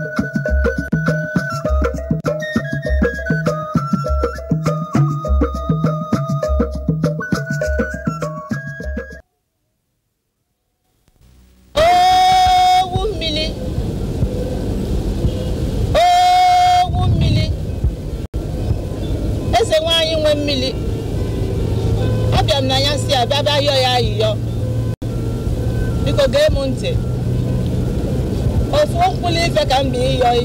thank you ka m bi ịyọghị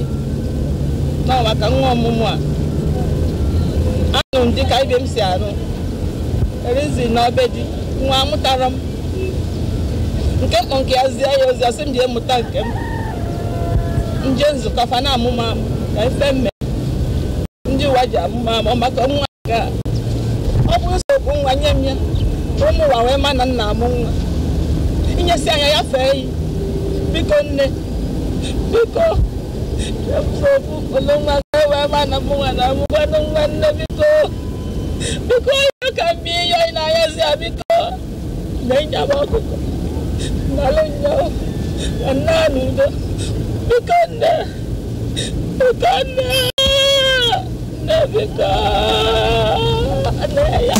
nọ maka nwa ọmụmụ a anụ m dịka ibe m si arụ erizi n'obe di nwa amụtara m nke mkpọ nke ya zie ya ozi ọsị m ji emụta nke m nje nzukọ fa na amụma ka ife mme ndị ụwa ji amụma maka nwa nke a ọ bụ nsogbu nwa nye m ya ụmụ ụwa wee ma na nna amụ nwa inyesi anya ya fee yi biko nne dito. Biko, tulungan ka, mama na mong anak mo, ganong man na Biko. Biko, ayaw kami, ayaw inaya siya, Biko. Nanya mo ako. Nalang niya, anano na. Biko na. Biko na. Na, Biko. Anaya.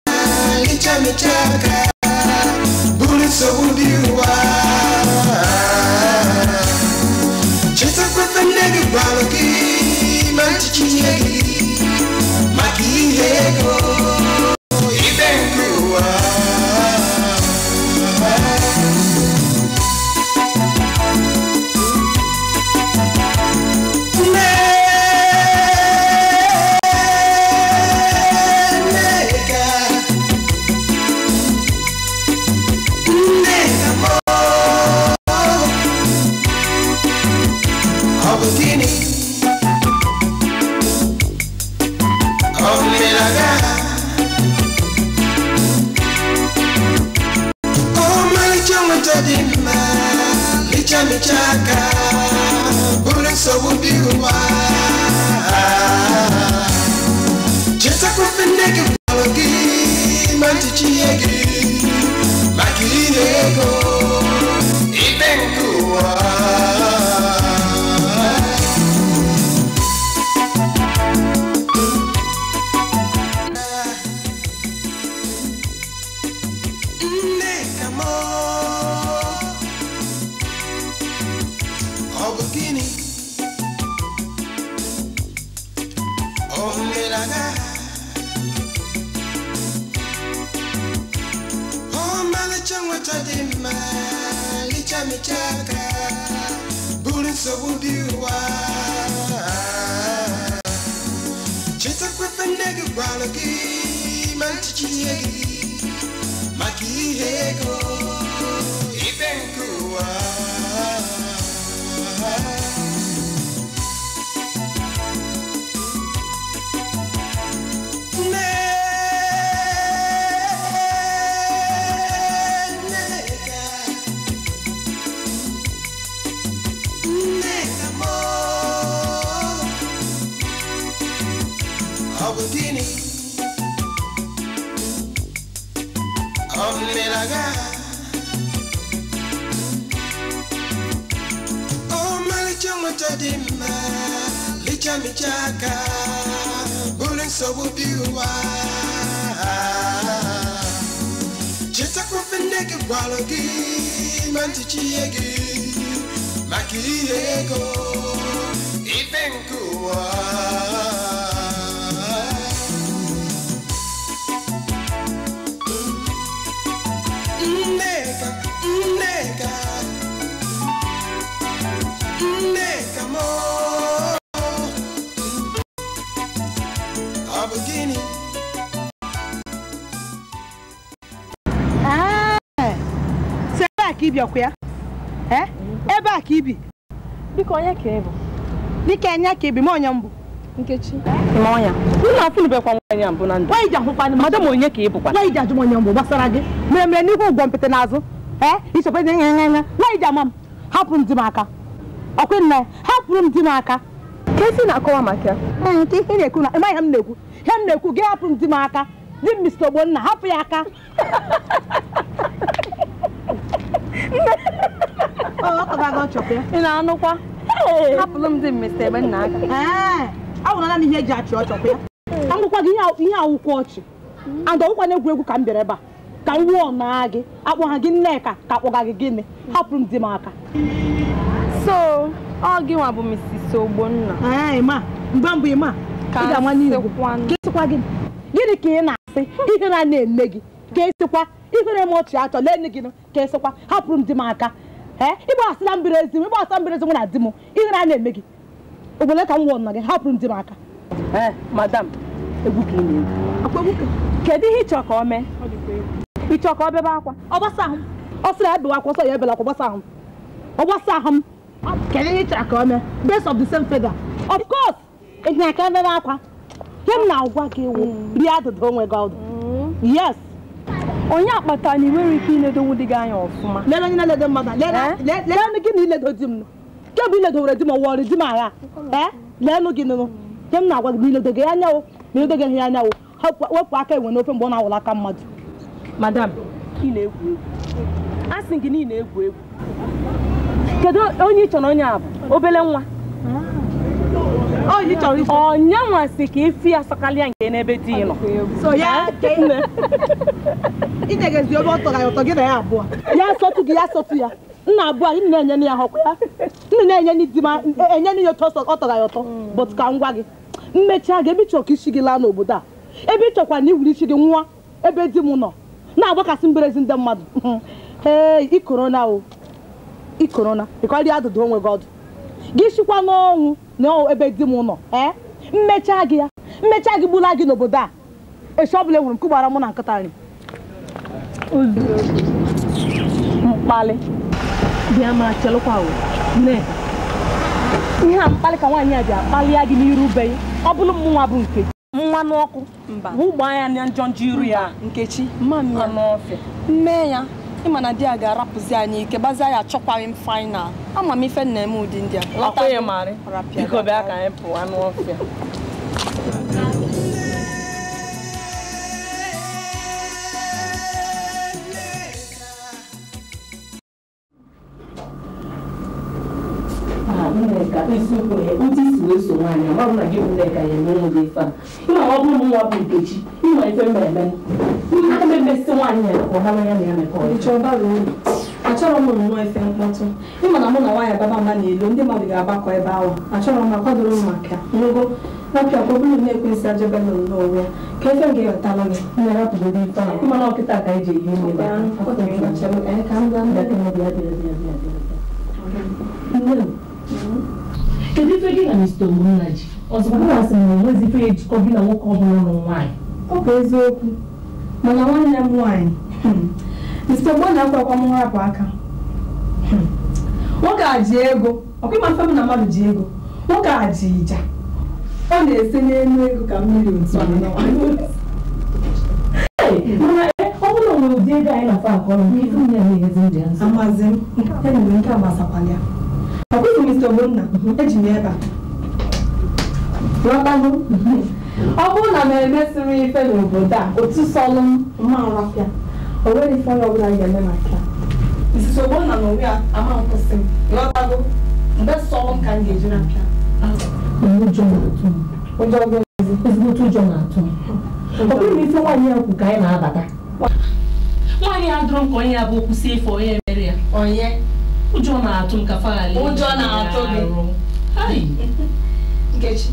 changwa chadima licha michaka buri sobudiwa chisa Oh, malichong tadima licha michaka bule sobu biwa cheta kufendeke bwalogi mantichiyegi makiyego ipenkuwa ọkụ ya ebe a ka ibi dịka onye ka ịbụ enye ka ibi onye mbụ nkechi ọnya onye ka ịbụkwa nwaanyị ji onye mbụ gbasara gị mere mere n'ihu ụgwọ mpịtị n'azụ ee ichekwa dị nya nya nwaanyị ji hapụ m di m aka nna ya hapụrụ m di m aka kesi na-akọwa maka ya hapụ ya aka aga ya. ị na-anụkwa hapụrụ m dị mmesi ebe nna aka ahụrụla m ihe eji achị ọchọkwa ya agụkwa gị ihe awụkwọ ọchị and ọgwụkwana egwuregwu ka m bịara ebe a ka m wụọ naa gị akpọgha gị nneka ka akpọga gị gịnị hapụrụ m di m aka so ọ gị nwa bụ Mrs. Ogbonna mgbe mbụ ịma gịnị ka ị na-asị ihere a na-eme gị ka esikwa ihere m ọchị achọ lee nne gị ka esikwa hapụrụ m di m aka ee ịgbasịla mbiri ezi m ịgbasa mbiri ezi m na di m ihere a na-eme gị obodo ka m wụọ nna gị hapụrụ m di m aka madam egwu ka ị na-egwu kedu ihe ịchọ ka ọ mee ịchọ ka ọ bebe akwa ọ ahụ ọ sịrị ebewa akwa ọsọ ya ebela akwa gbasa ahụ ọ ahụ m kedu ihe ịchọ ka ọ mee based of the same feather of course ịnyaka bebe akwa ihe m na-agwa gị wụ hmm. rie adụdụ onwe gị ọdụ hmm. yes onye akpata na ị nwere ike iledo nwụ dị gị anya ọfụma lere onye na-eledo mmadụ leenụ eh? gị na iledo di m kemgbe iledo were di m ọwọrị di m agha eh? leenụ gị nụnụ nye m na-agwa gị na iledo gị anyanwụ na iledo gị anyanwụ wepụ aka enwe n'ofe mgbe ọ na-awụla aka mmadụ madam ị na-egwu egwu asị gị na ị na-egwu egwu kedu onye ị chọrọ onye a bụ obele nwa ah. onye nwasị ka ifi ya sakalịa nke n'ebe di nọ ya asọtụ gị ya asọtụ ya nna abụọ anyị na-enye ya họkwa ya nna na-enye e, ya ọtọ ọ tọrọ ya ọtọ hmm. bụtụ ka ngwa gị mmechaa gị ebe ịchọkwa isi gị laa n'obodo a ebe ị na iwuri isi gị nwa ebe di m nọ na-agbakasị mberezi ndị mmadụ hmm. ee ikorona o ikorona adụdụ onwe gị sikwa n'ọnwụ na ebe di m nọ ee eh? mmechaa gị ya mmechaa gị gbula gị n'obodo a echi ọbụla enwere m nke gbara mụ na nkịta nri mkpalị bịa ma chelụkwa nneka ihe a mkpalị ka nwaanyị a ji akpalịa gị n'iru be ọ bụrụ mụnwa bụ nke mmanụ ọkụ mba ụgbọ anya na njọ njọ iru ya nkechi mmanụ ya n'ọfịa nne ya ịma na di ya ga-arapụzi anyị ike gbazie ya achọkwaghị m fainal ama m ife nna m ụdị ndị a Nneka ndị si wee so ya emere gị ife a ịma ọ bụrụ nwa bụ Nkechi ịma ife mba eme m emesị nwaanyị ya ka ọ hara ya na ya mekọ achọrọ m nwa ife mkpọtụ ịma na mụ na nwaanyị baba mba na-elo ndị mmadụ ga-agbakọ ebe ahụ achọrọ m akwadoro m maka ngogo napịa kpọbụrụ na-ekwensị ajebe na n'onwe ya ka efe m ga gị ehi ime kedu ife gị na Mr. Ogbonna ji ọzọkwa mụ na sị na onwezi ife ejikọ gị na nwoke ọbụla nụrụ nwaanyị ọ bụ eziokwu mana nwanne m nwaanyị Mr. Hmm, Ogbonna akwa akwa m nrapụ aka hmm, nwoke a ji ego ọkwa ịma mfe m na mmadụ ji ego nwoke a ji ịja ọ na-ese n'elu ego ka mmiri otu mana e, ọ bụrụ na ụdị ego anyị na-afa akọrọ nke ife nye ya na-enyezi ndị amazi m enwere nke agbasakwala ya ọ bụghị mr ogbonna eji m ebe a, ghọtago ọ bụrụ na m emesịrị ife n'obodo a otu sọlụ mma arapịa o nweghị ife onye a ga-eme maka Mrs. Ogbonna na onwe ya ama nkwụsị m ghọtago mgbe sọlụ ka m ga-eji na-apịa ezigbote ụjọ na-atụ ọ bụghị na ife nwaanyị ya kwu ka anyị na-abata nwaanyị ya dụrụ m onye ya bụ kwụsị ife onye mere ya onye ụjọ na-atụ m ka faali ụjọ na-atụ gị nkechi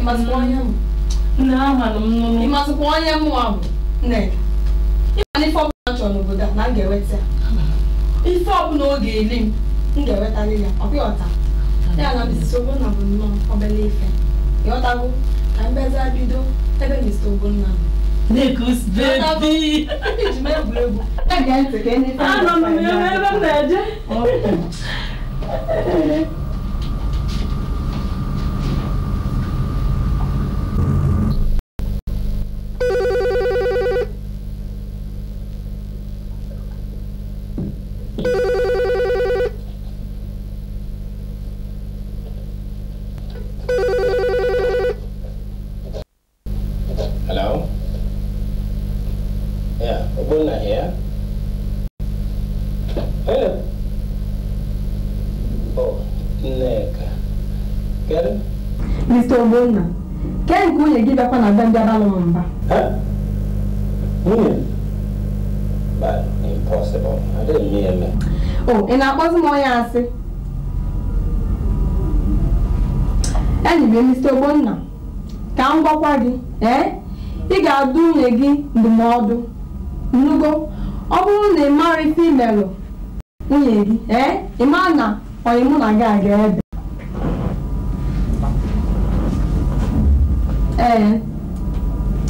ịmasịkwa onye m na amanụ m nụrụ ịmasịkwa onye m ahụ nneka ịma n'ife ọbụla chọrọ n'obodo a na m ga-eweta ya ife ọbụla ọ ga-eli m m ga-ewetarị ya ọ pịọta ya na Mrs. Ogbonna bụ nnọọ obere ife ịghọtago ka mbeza bido ebe Mr. Ogbonna nọ Negus baby. Again, tá again. Ah, não, no, no, no, no, no, no. ẹgbẹ́ ń jábá lọ́wọ́ nbà. but impossible I didn't mean me. oh ị na-akpọzi m onye asị enyi m emisi ogbonna ka m gwakwa gị ee ị the adụ nwunye gị ndụmọdụ nnugo ọ bụrụ na ị mara ife imelụ nwunye gị ee ị mara na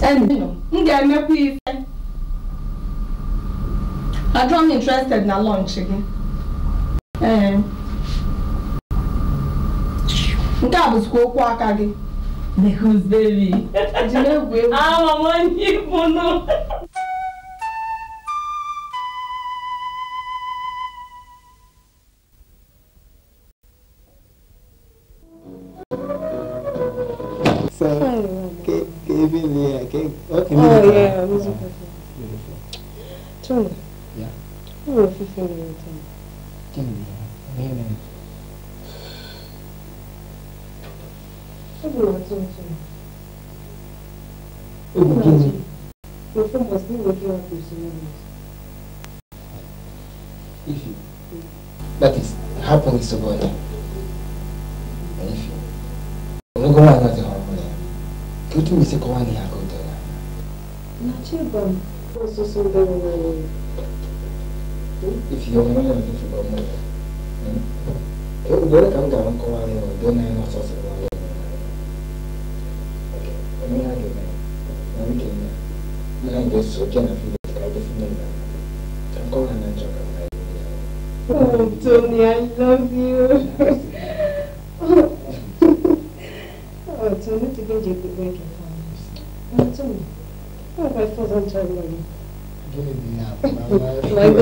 m ga-emekwa ife adọm interested na lọnch gị eh. nke a bụzikwa okwu aka gị the gooseberry eji na-egwu egwu ah,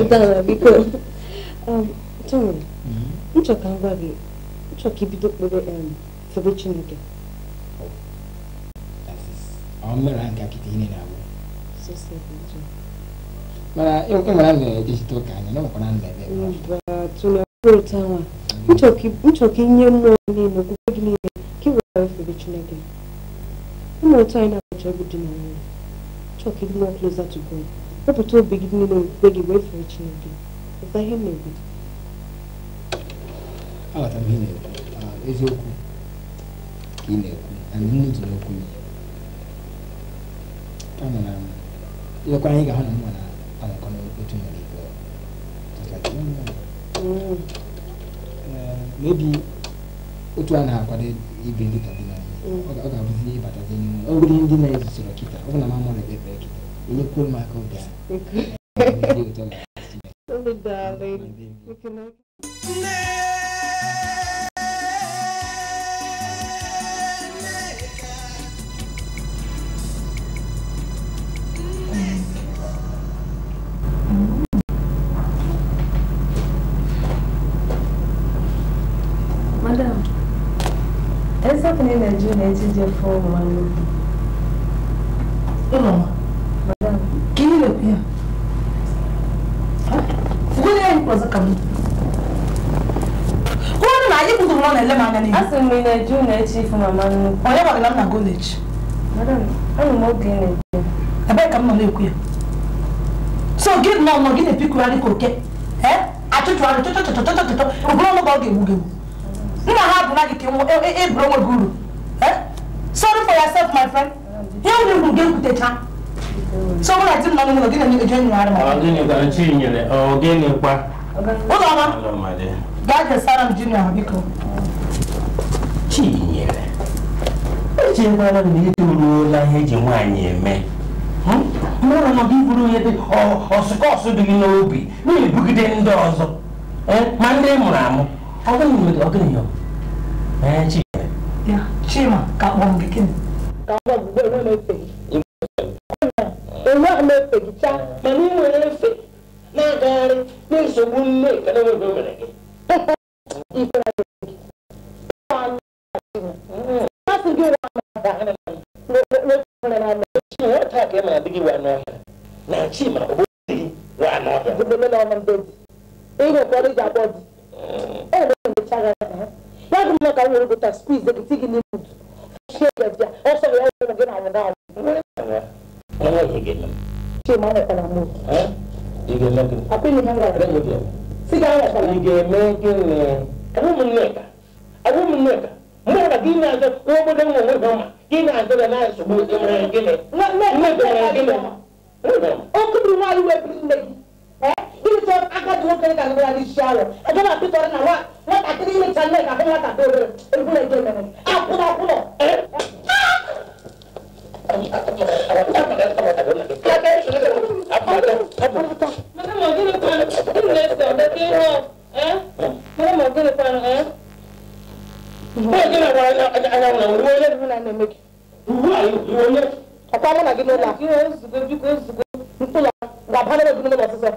dara biko um, tom nchọ ka ngwa gị nchọ ka ibido kpere febe chineke ọmụmere nke akịta ihe na-abụ mana enwere m na-ejechita ụka anya na nwekwara nna ebe tụlụtanwa nchọ ka inye mmụọ niile okwukwe gị niile ka ị were febe chineke ụmụ ụtọ anyị na-abụcha egwu dị na nwunye nchọ ka ịdị nwa closer to god wepụta obi gị niile okwukwe gị wee fere Chineke pụta ihe na-ebi aghọtara ihe na-ekwu eziokwu ka ị na-ekwu anyị nne dị n'okwu gị kama na ilekwa anyị ga-ahụ na mma na anọkọ n'otu nwere ikpe mebi otu a na-akwado ibi ndị tabina ọ ga-abụzi ịbatazi n'ime ọgụrụ ndị na-ezusoro kịta ọ bụ na mm. eh, mm. mamụrụ ekpekpe Nikul Makoda. Tudo dá, Lady. Porque não. Madame, essa menina Juliette já foi humana. Eu não. kpọzụkam ka onye na anyị bụdoro nọ na-ele m anya n'ihu asị m na eju na-eche ifu mama nnukwu onye gwagara m na goleji anụ m oge na-ekwu ebee ka m nọ na-ekwu ya so gị nọ nọ gị na-epikugharị ka oke achụchụgharị chọchọchọchọchọchọ ụbụrụ ọnụ ka ọ ga-egbu gị nna ha bụ na gị ka eburu onwe gị uru sorry for yourself my friend ihe nwere uru gị ekwutecha so mụ na di m nọ n'ụlọ gị na-eje nyụgharị m ọgịnị kwa ụlọma gaa kesara m ji na biko Chinyere echekwala m na itoruola ihe eji nwaanyị eme hmm? nọ nọdụ iburu ihe dị ọsụkọsụ dị gị n'obi na-ebugide ndị ọzọ e, ma ndị mụrụ amụ e, Chima ka kpọọ gịnị enweghị gị efegicha mana ị nwere efe na-agagharị na nsogbu nne nke na mere gị masị ka ị mara dị gị wa n'ọhịa na chi ma obodo dị gị nwere hmm. gị ụmụ na anwụrụ igelagin apili hangara mudia sigara sa igelegin abu munneka abu munneka mura gina azo wobo dan mo wodoma gina azo da na su bu imra gine na na na na gine o kudu ma yi webi eh ini so aka do kan kan bra di shalo ajo na pitor na wa wa ta kiri ni channe ka ko wa ta do do Akwa mwana gino la. Gino zugo, zugo, zugo. Nkola, wabhane wa gino la sisa.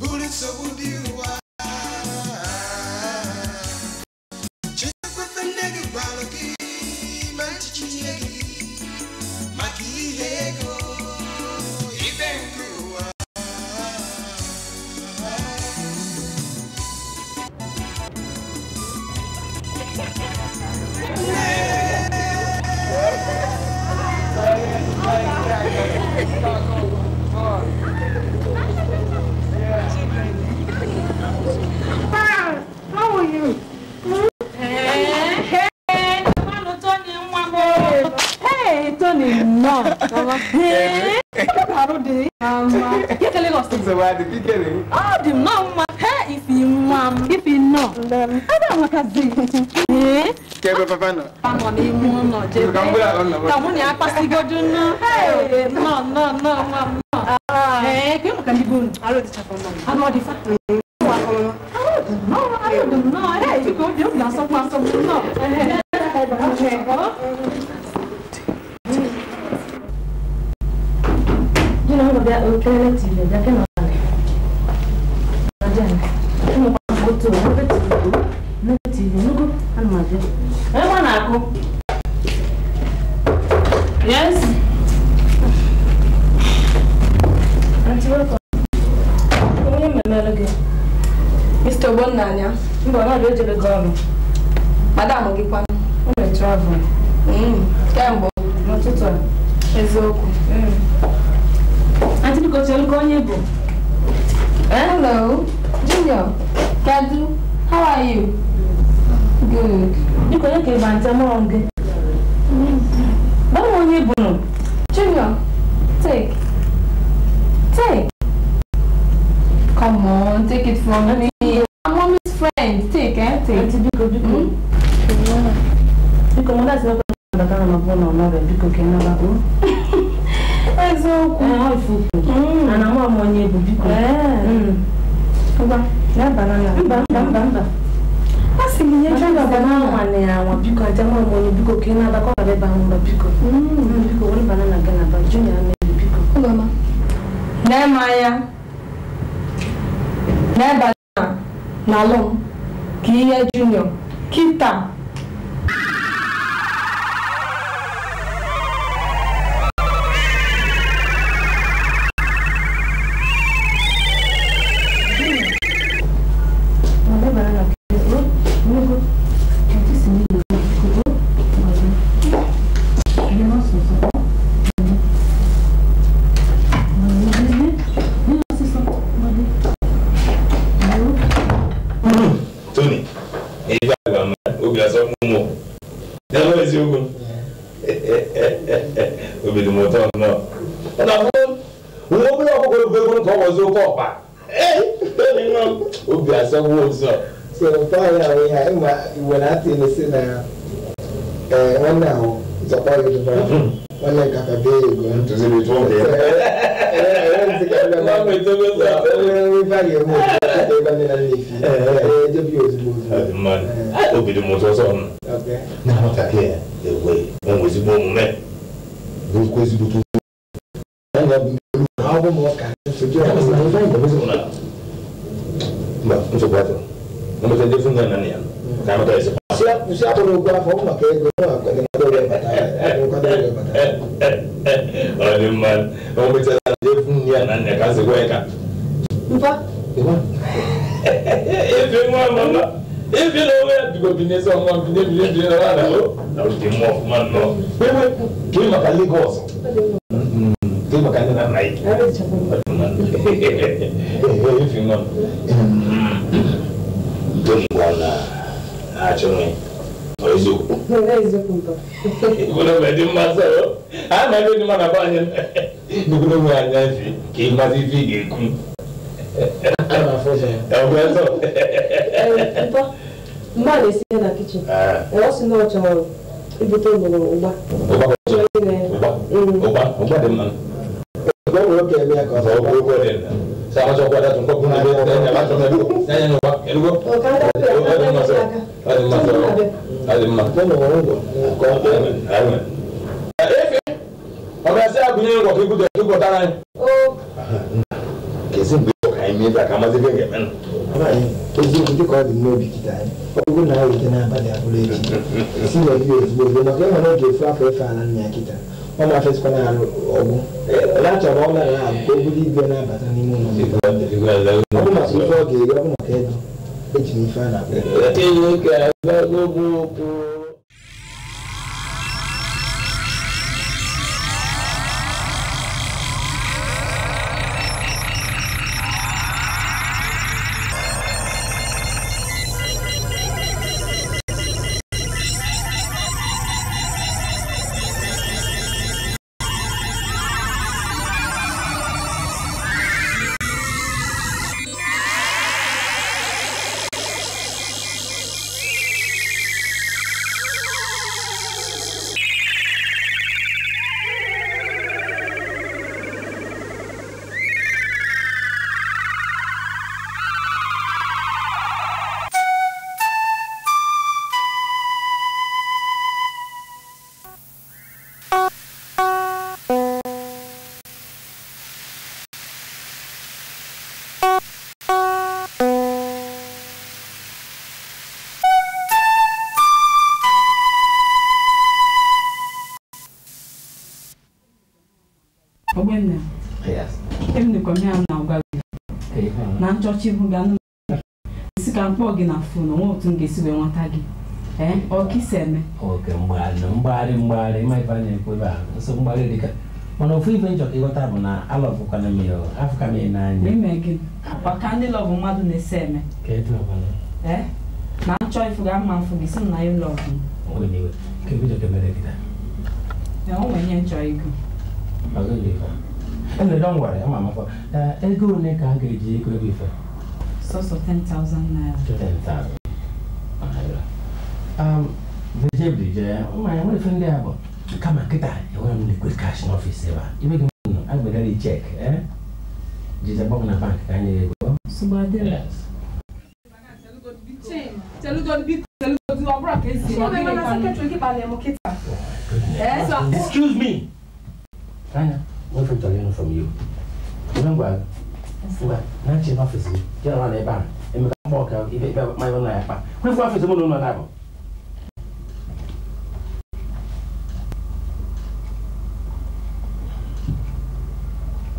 Bullets are non non, obìnrin ọ dị mma o efu ya na nna ka zikwa ya ka ebe nwa mama ebe na onwe ya bigo n'ezi ọnwa n'ebile bi na nwa o mm, na ụdị mma ọfụma nnọọ ewe maka Lagos kee maka nne na nna ya nwa m na achọghị eziokwu ebube dị mma sọrọ a na-ebe dị mma na be anyị bụkụrụ nwe anya fi ka ị mazi ife ị ga-ekwu mgbe a na-esi na kichin ọ sị na ọ chọrọ ibute ụgba ụgba dị mma ụgba nwere oge eme ya ka ọ sama sokwa da tun ko kun be da ne ba to me du da ne no ba elu go o ka da pe o da ma so ali ma so ali ma to no go ko amen amen efe ọba se agunye ngo ki gudo ki gudo ran o kesi gbe o kai mi da kama se gbe men ọba yi ogo na ayo tena ba da abule ti si le bi o ti bo na ke mo na ke fa fa fa na ọ na-afesịkwala ya ọgwụ ya chọrọ ọla ya ka o buru ibe na-abata n'ime ụlọ ọ bụ maka ife ọ ga-eri ọ maka ego eji ife a na-akpọ na nchọcha ihu gị anụ isi ka mkpọ gị na fon onwe otu m ga-esi wee nweta gị ife a na-ekwu ebe a mana ofu ife njọ ka ịghọta bụ na alọbụkwana m ya afụka m ya n'anya gị ndị lọbụ mmadụ na-ese eme e na nchọ ifu ga mma gị si na e e nchọ ego Ele don't worry, I'm mama for. Uh, ego ne ka ga eji ego bi fe. So so 10,000 naira. 10,000. Ahira. Um, the job di je, o ma yan we fe ndi abo. Kama kita, e wa mi quick cash na office ba. Ibe gi no, I go dey check, eh? Jija bom na bank ka ni ego. So ba dey. Yes. Tell you to be tell you eh? to abroad case. So Excuse me. nwefụtara ịnụ from you ibe ngwa ngwa na nche n'ọfịs gị jere nwa na ebe ahụ emeka não ọka ibe ebe mmanụ na ya kpa não não mụ na ụlọ na-abụ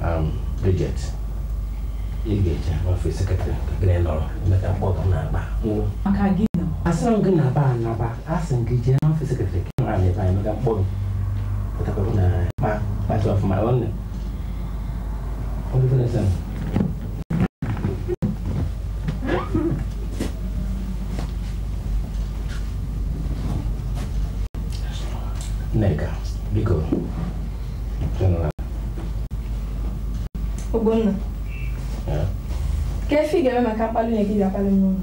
um, Bridget ị ga-eje n'ọfịs sekretrị gịnị não emeka mkpọ ọka na-akpa asịrị m não na-aba não asị m gị jee n'ọfịs sekretrị gị nọrọ não ebe anyị emeka mkpọ gị Atakwambia na pa part of my own. Ongea sana. Neka, biko. Tena. Ubona. Yeah. Kefika wema kapalo nyekija pale mnono.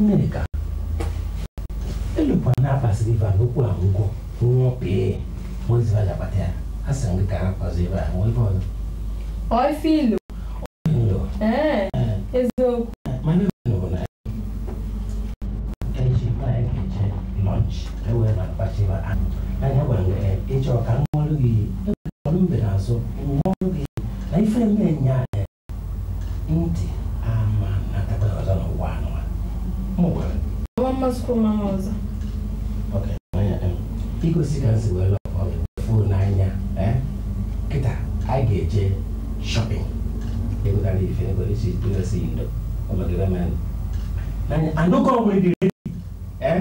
Neka. Ele pwana pasi divango Pois lá Baté, a sangue tá fazendo muito bom. Oi, filho. Oi, filho. É, é, é, é Mas não né? é novo, né? é chama é que é lunch. Eu é na passiva. Aí, eu vou é, e eu quero um olho e eu não me lanço. Um olho e aí foi minha é. Inte, ah, mano, na tapa da zona uano. Muito bom. Vamos com uma moza. Ok, é Fico se cansando. anyị ga-eje shopping ịgụtara ife ebe isi dụresi ndo ọnọdụre m anya anụkọ nwere dịrị ee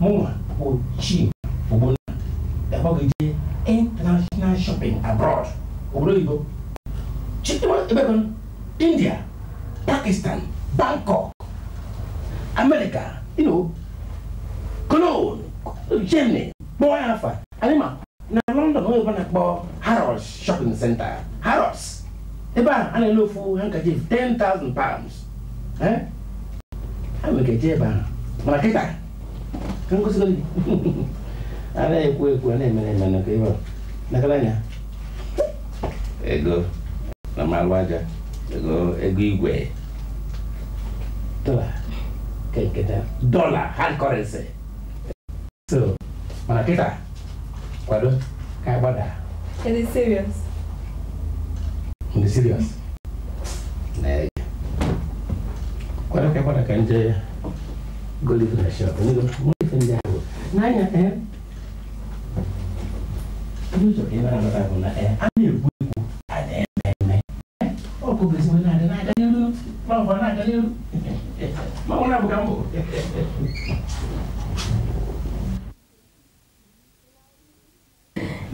mụnwa bụ chi ogbonna dakpọgo je international shopping abroad obodo oh, oyibo chidebekon india pakistan bangkok america you know cologne germany kpọọ ya afa anyị ma na london onye ọbụla na-akpọ Harrods shopping center Harrods ebe a a na-ele ofu handkerchief 10,000 pounds ha nwere eje ebe ahụ mana kịta ka ngosigo gị a na-ekwu ekwu a na-emere emere ka ebe nakala anya ego na mmalụ aja ego ego igwe dola ka nketa dola hard currency so mana kịta kwado ka agbada It is serious. It is serious. Nay. Kwara kai kwara kan je goli da shi ko ne mu fin da ko. Na ya eh. Ni so ina na ta ko na eh. Ani ku ku. Ade na na. O ko besi na da na da ni ru. Ma ko na da ni ru. Ma ko na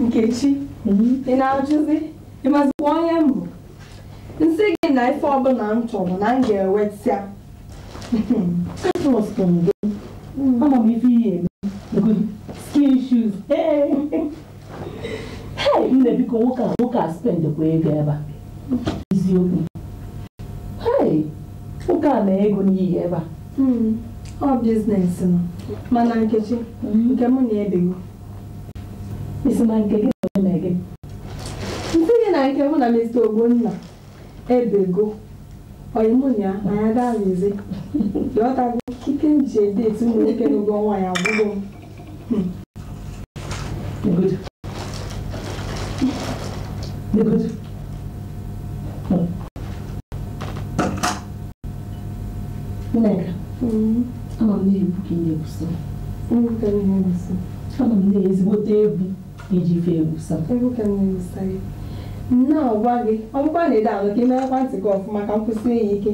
nkechi ị na-ajụzi ị mazikwa onye m bụ nsị gị na ife ọbụla m chọrọ na m ga-ewetịa trọst gị ama m ife ihe eme skin shoes hei nne biko nwoke a nwoke a spendekwa ego ebe a eziokwu nwoke a na-ego n'ihi ebe a hmm, ọ biznes mana nkechi hmm? nke m na-ebigo isi na nke gị na nwunye gị nsị gị na nke mụ na mr ogbonna ebego oyimunya anya gaa n'ezi yọtago ike m ji ede eti ụmụ nwoke n'ụgwọ ọnwa ya agwụgo m nneka ama m na-ebu ka ị na-ebusi ama m na-ezigbote egwu iji fee nsọ nna ọgwa gị na-ede ahụ ka imeekwa ntị gị ọfụma ka nkwụsị enyi ike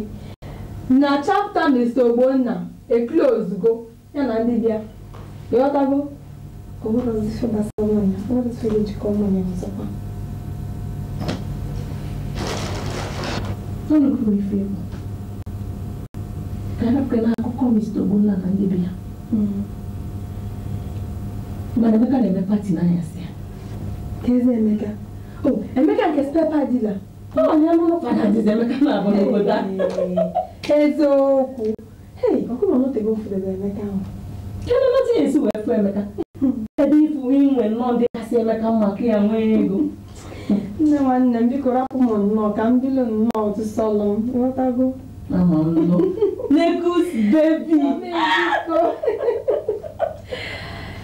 na chapta Mr. Ogbonna e ozugbo ya na ndị bịa ịghọtago ọbụrụzife gbasara ọ Ogbonna na ndị bịa hmm. mana Emeka na-eme pati n'anyasị ka eze Emeka o oh, Emeka nke spepa dila oh, eziokwu kedụ nọta ya esi wee fụ Emeka ebe ifu inwe nnọọ ndị kasị Emeka maka ya nwee ego nne nwanne m bikọrọ rapụ m nnọọ ka m bilo nnọọ otu sọlọ m ghọtago Lagos bebi.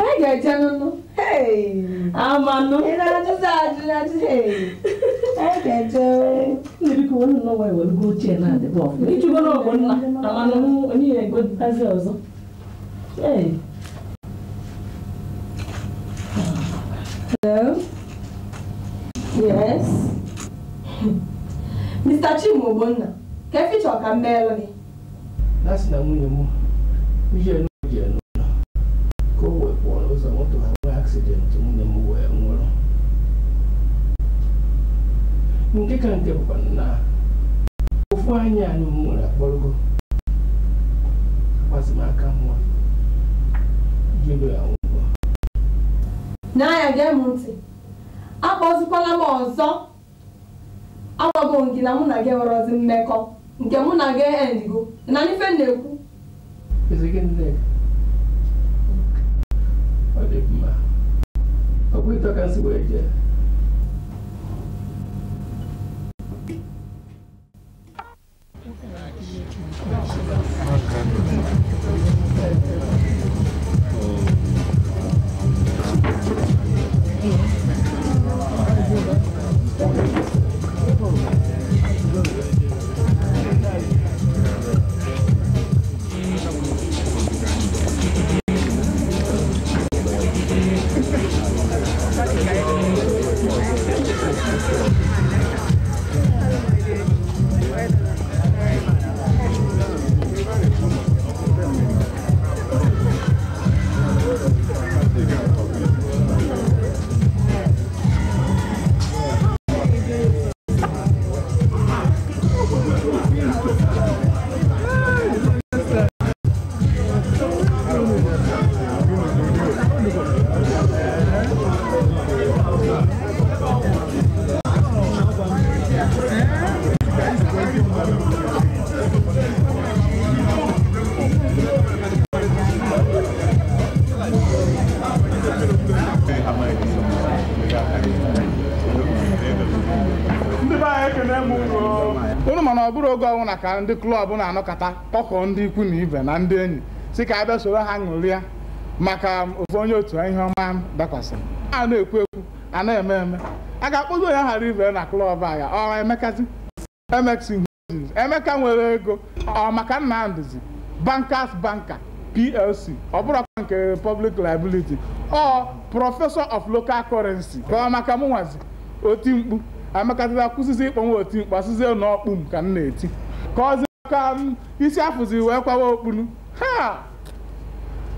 Ai, gajano. Hey. Amanu. Inadizadi, inadizadi. Hey. Ai, gajo. Maybe you want to know why we'll go chair now. If you go go na. Amanu, only a good fazer also. Hey. Hello. Yes. Mr. quer keficha com mmeelu gị. That's na nwunye m. Mijelu nke ka nke bụkwa na ofu anyị anyị nwere akpọrọgo agbazimaka nwa jụrụ ya ụgwọ N'ahịa gee m ntị akpọzikwala m ọzọ agwago m na mụ na gị nwerọzi mmekọ nke mụ na gị endigo na ife na-ekwu ọ dị mma ọ bụ ịtọ ka nsị wee jee ọwụ na ka ndị klọb na-anọkọta kpọkọọ ndị ikwu na ibe na ndị enyi si ka a bịa soro ha ṅụrịa maka ofu onye otu ihe ọma dakwasịrị a na-ekwu ekwu a na-eme eme a ga-akpọzi onye ghara ibe na klọb a ya ọ emekazi emeka nwere ego ọ maka nnamdịzi bankers banka plc ọ bụrụkwa nke republic liability ọ prọfesọ of local currency ka ọ maka mụnwazi oti mkpu amekazila kwụsịzi ịkpọ nwa oti mkpu asịzie m ka m na-eti ka ọzi ka isi afụzi wee kwawa okpunu ha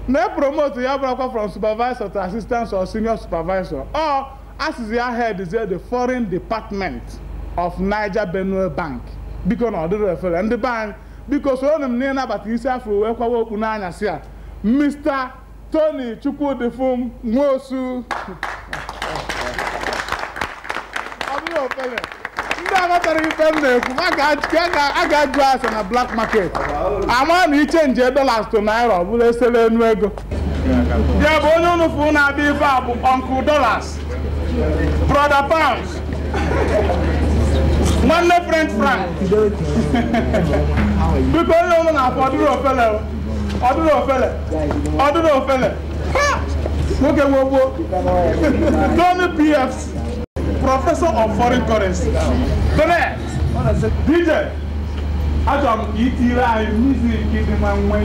na-epromotu ya bụrakwa from supervisor to assistant or senior supervisor ọ asịzi ya headzie the foreign department of Niger Benue Bank biko na ọ dịrị efere ndị bank biko soro m na ịnabata isi afọ wee kwawa okpu n'anyasị a Mr. Tony Chukwudifum Nwosu ọ aghọtara ife m na-ekwu a ga-ajụ ase na black market ama na ichenji dollars to naira ọ bụla esele enu ego ya bụ onye ụnụfụ na-abịa ife a bụ uncle dollars brother pounds nwanne french frank biko onye ụmụ na-afọ ọdụrụ ofele ọdụrụ ofele ọdụrụ ofele nwoke gbogbo Tony PFC professor of foreign currency bẹ́ẹ̀ dj achọrọ m ka ị tiri anyị mizik dị ma nwe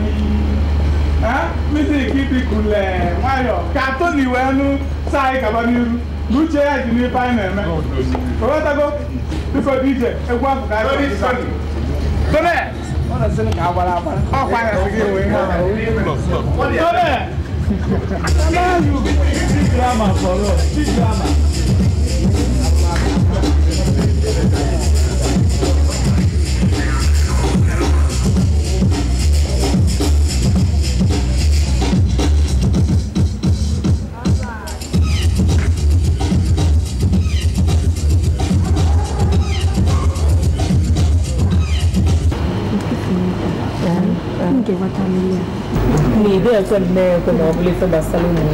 mizik dịkule nwayọ ka toni wee nụ saa anyị gaba n'iru na uche ya dị n'ife anyị na-eme owetago biko dj egwu afọ ka anyị bẹ́ẹ̀ ọkwa ya sị gị wee ihe bẹ́ẹ̀. Drama for us, big drama. sardento, nobili sa basalini.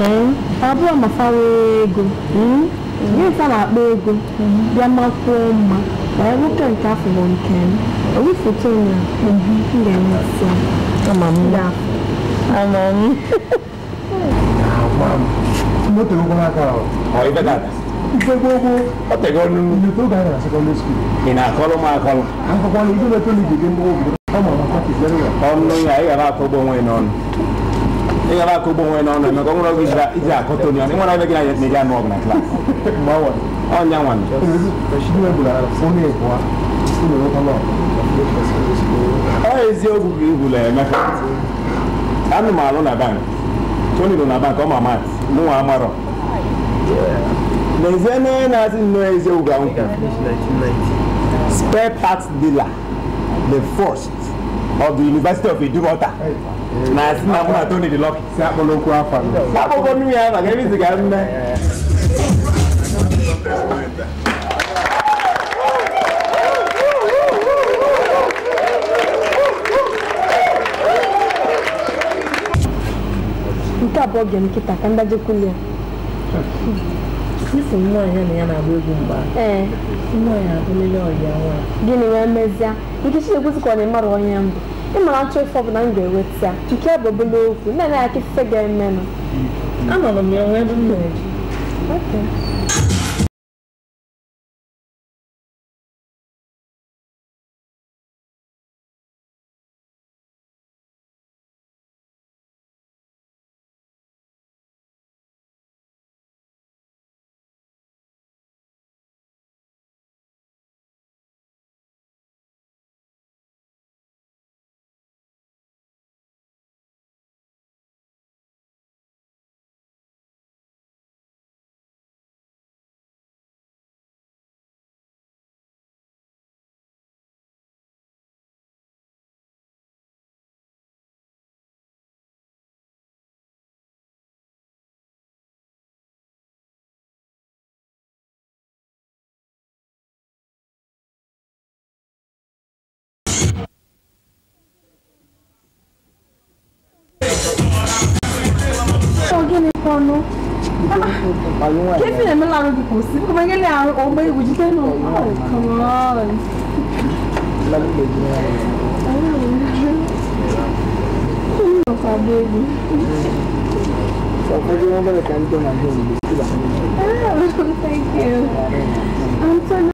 Eh, abu ama fawego. Hmm? Ye sa na bego. Ya makoma. Ba e wuka nka afọ nke m. Owu foto na. Mhm. Nde na so. Ama m da. Ama m. Ama m. Moto ko na ka. Oi bedada. Gbogbo ọtẹgọ nínú. Ìlú tó gbà yàrá secondary school. Ìnà àkọlù máa kọlù. Àkọ́kọ́ ni ìdílé tó lè dìde ń bọ́ òbí. ọmọnyi a ịghara akọgbu onwe n'ọnụ ịghara akọgbu onwe n'ọnụ emeka ọ nwere oge iji akọta onye ọnụ ịnwere ebe gị na eri anụ ọgụ na klaasị ọnya nwanne ọ eziokwu ka ihula emeka anụ m alụ na bank tony nọ na bank ọ ma mat mụ nwa amarọ n'ezie n'onye na-asị nnọọ eziokwu ga nkwụ spare parts dealer the first of the University of Edumota na si na Tony dị Lucky. Si akpọrọ okwu afọ nnu ya maka ebe ga mme. nke abụọ ga nkịta ka ndajekwu ya isi ya na ya na-agba egwu mgba eh. ya abụlele ọyịa nwa gịnị wee mezie ike Chinekwusi ka ọ na-emara onye mbụ ịmara nchọ ụfọdụ na m ga-eweta nke bụ obele okwu na ya aka ife ga-emenụ anọrọ m ya nwee Kevin and Milan of the See, come again down. Oh my, would you say oh, no? Oh, come on. I'm Thank you. I'm so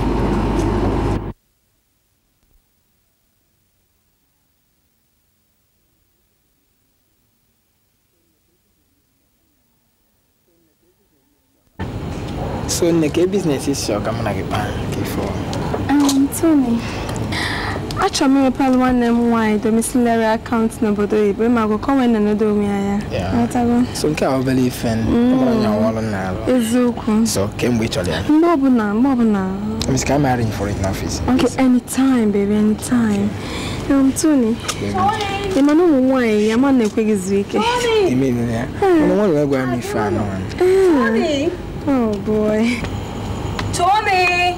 so nneke ka biznes isi ọga na gị kpaa ka ifo Tony achọrọ m imepere nwanne m nwaanyị domiciliary akaụntụ n'obodo oyibo e, ma agụkọ nwee na-anodo onwe ya so nke a obere ife eziokwu so kemgbe ị chọrọ ya mgbe ọbụla mgbe ọbụla Miss ka I marry you n'ọfịs. ok in office? Okay, anytime, baby, anytime. Um, Tony. Ị ma na ụmụ nwaanyị ya ma na-ekweghịzi ike. Ime ime ya. Ụmụ nwaanyị ga-agwa m ife anọ. Oh boy. Tommy!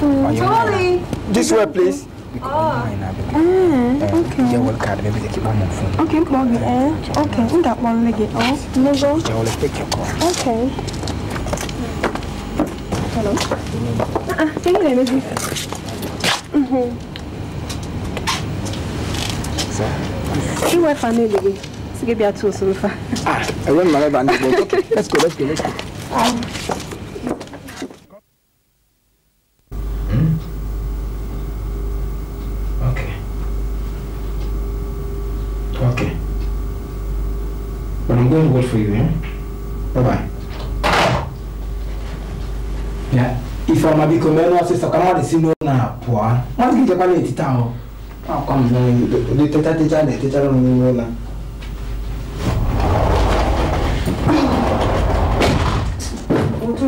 Mm. Tommy! This way, please. Ah. Mm, okay. Yeah, well, card, baby, keep on phone. Okay, plug it Okay, in that one, leg it off. Oh, take your call. Okay. Hello. Ah, uh-uh, ah, thank you, baby. Mhm. So, you were family. gibi yatıyor sınıfa. Ah, öyle mi? Ben de buldum. Let's go, let's go, let's go. going to for you, eh? Bye-bye. Yeah. Ifa mabiko meno sasa kama walisimu na poa. Mwazikija pale ititao. Kwa mzee, tetete chale, tetete mwenye mwenye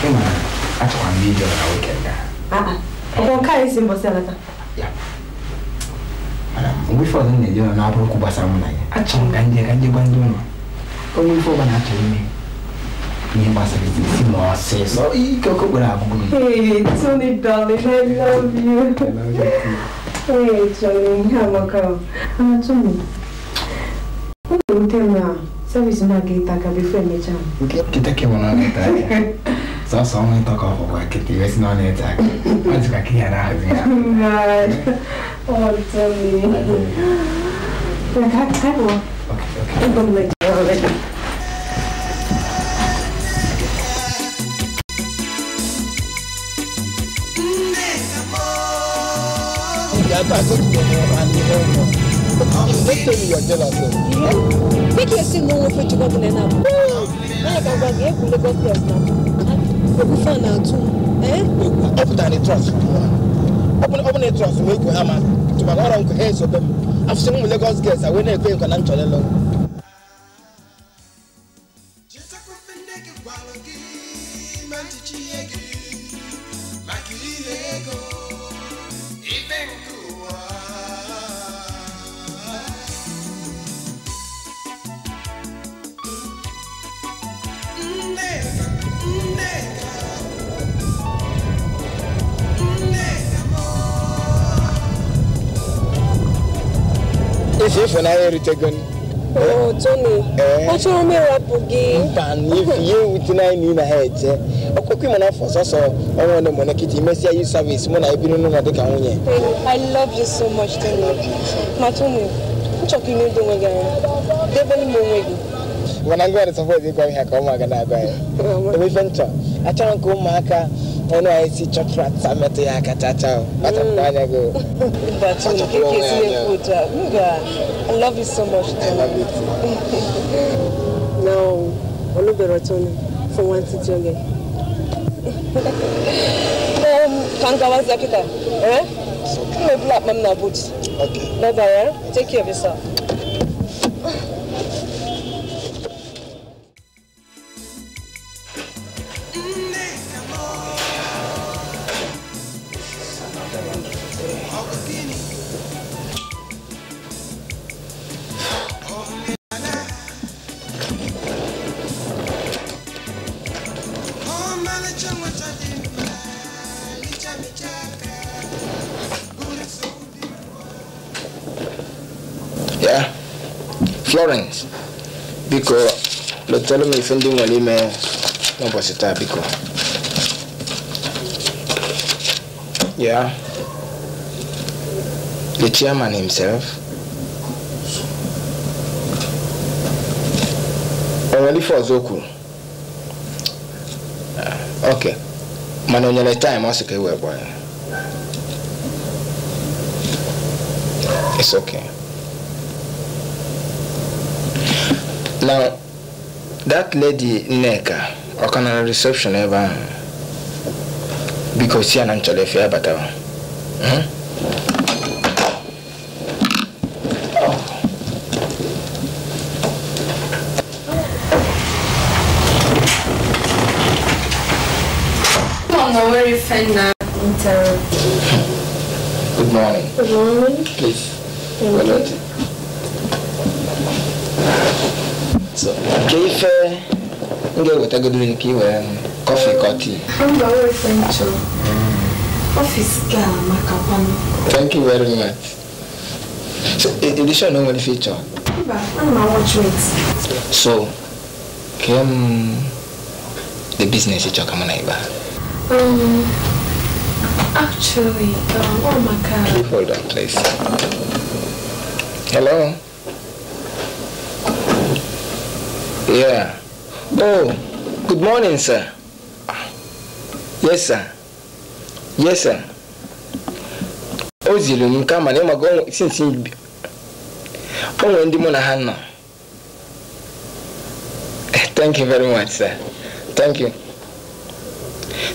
Sema acha kwambie ndio naweka da. Haa, ah, ah. kwa Ukokaa isi mbo sana ta. Ya. Mana, mwifu wa zani ndio na wapu kubwa sana ya. Acha nganje kanje njono. Kwa mwifu bana acha mimi. Ni basa hizi si mwase. So kwa kwa kwa kwa kwa kwa kwa kwa love you. I love you. Hey, Johnny, how are you? Ah, Tony. Unamtema service na gita kabisa imechana. Kitake mwanangu tayari. Sasa so, only talk of work, it's not an attack. What's like here? God, oh, tell me. Like, I can't go. Okay, okay. I'm going to make you already. Make your single for to go to the now. Like, I'm going to go to the now. Obufa na atu. Eh? Obuta ni trust. Open open a trust we go ama. To ba ngora nko heads obem. Afse mu Lagos girls awe na ekwe nko na nchole lo. Otegon. Oh, eh? Tony. Eh. Achọrọ m gị. Mba, n'ifi ihe ewute na na ha ọnwa ọnụ mụ na nkịta imesịa yi savisi mụ na ebiri n'ụlọ ka nwunye. I love you so much, ka na Mana ngwa ụmụaka na-agwa ya. Ebe ife achọrọ m ụmụaka ɛna ayɛ si kyɔtɔrɔ yɛ akatata o bata mm. mu n'anya go. bàtú nga i love you so much. i love you too. na olùbẹ̀rẹ̀ tó ní fún wọn ti tó yẹ. kankawa zakita ẹ kí ló bí àpamọ́ náà bó ti. okay bye bye eh? take care of yourself. chetara m ife ndị nwere ime n'ụbọchị taa biko ya the chairman himself onwere ife ọzọ kwuru ok mana o nyere taịm ọ sị ka ewee gbaa ya it's okay now that lady neka, or can a reception ever? Because she si I na nchọrọ efe ya batawa Good morning. Good morning. Please. agadirinkiwe kọfị kọti thank you very much so edition o nwere feature so kem the business ịchọ kama na ịba um, actually, um, oh Hold on, Hello? Yeah. Oh. Good morning, sir. Yes, sir. Yes, sir. O ziri m nke mana ịmaga sinsi o nwere ndị mụ na ha nọ. Eh, thank you very much, sir. Thank you.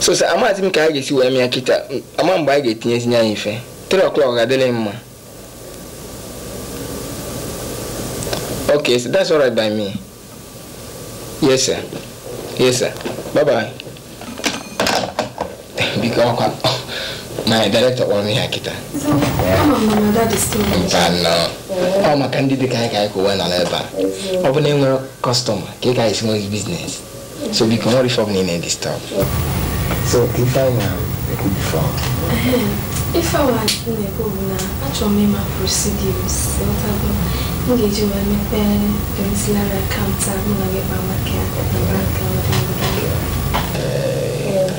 So, sir, amaghịzi m ka a ga-esi wee mịa kịta ama mgbe a ga-etinyezinye anyị mfe. 3 o'clock adịghị mma. Okay, so that's all right by me. Yes, sir. Yes, sir. Bye-bye. Because my director wants me akita. So, yeah. Oh, my candidate guy guy go one another. Open name customer. Kika is more business. So we cannot reform in any stuff. So if I am, it could be uh-huh. If I was in the governor, I told me my procedures. What happened? Engage you my parents, counter, and I get my market yeah.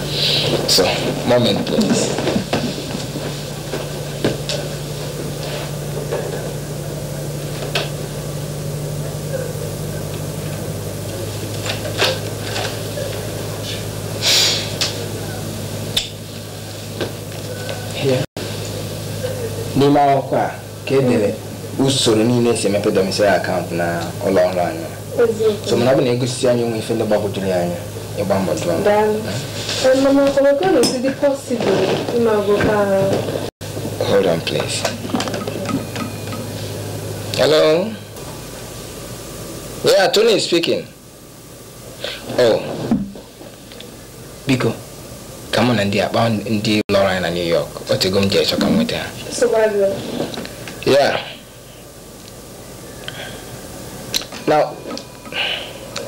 So, moment, please. n'ime akwụkwọ a ka edere usoro niile esi emepe domicile akaụntụ na ụlọ so mana ọ bụ na egosi anyị nwe ife ndị ya ịgba mbọ hold on please hello yeah Tony speaking oh biko ka na ndị akpa ndị lọrọ anyị na New York otego m ji ka m nweta yeah now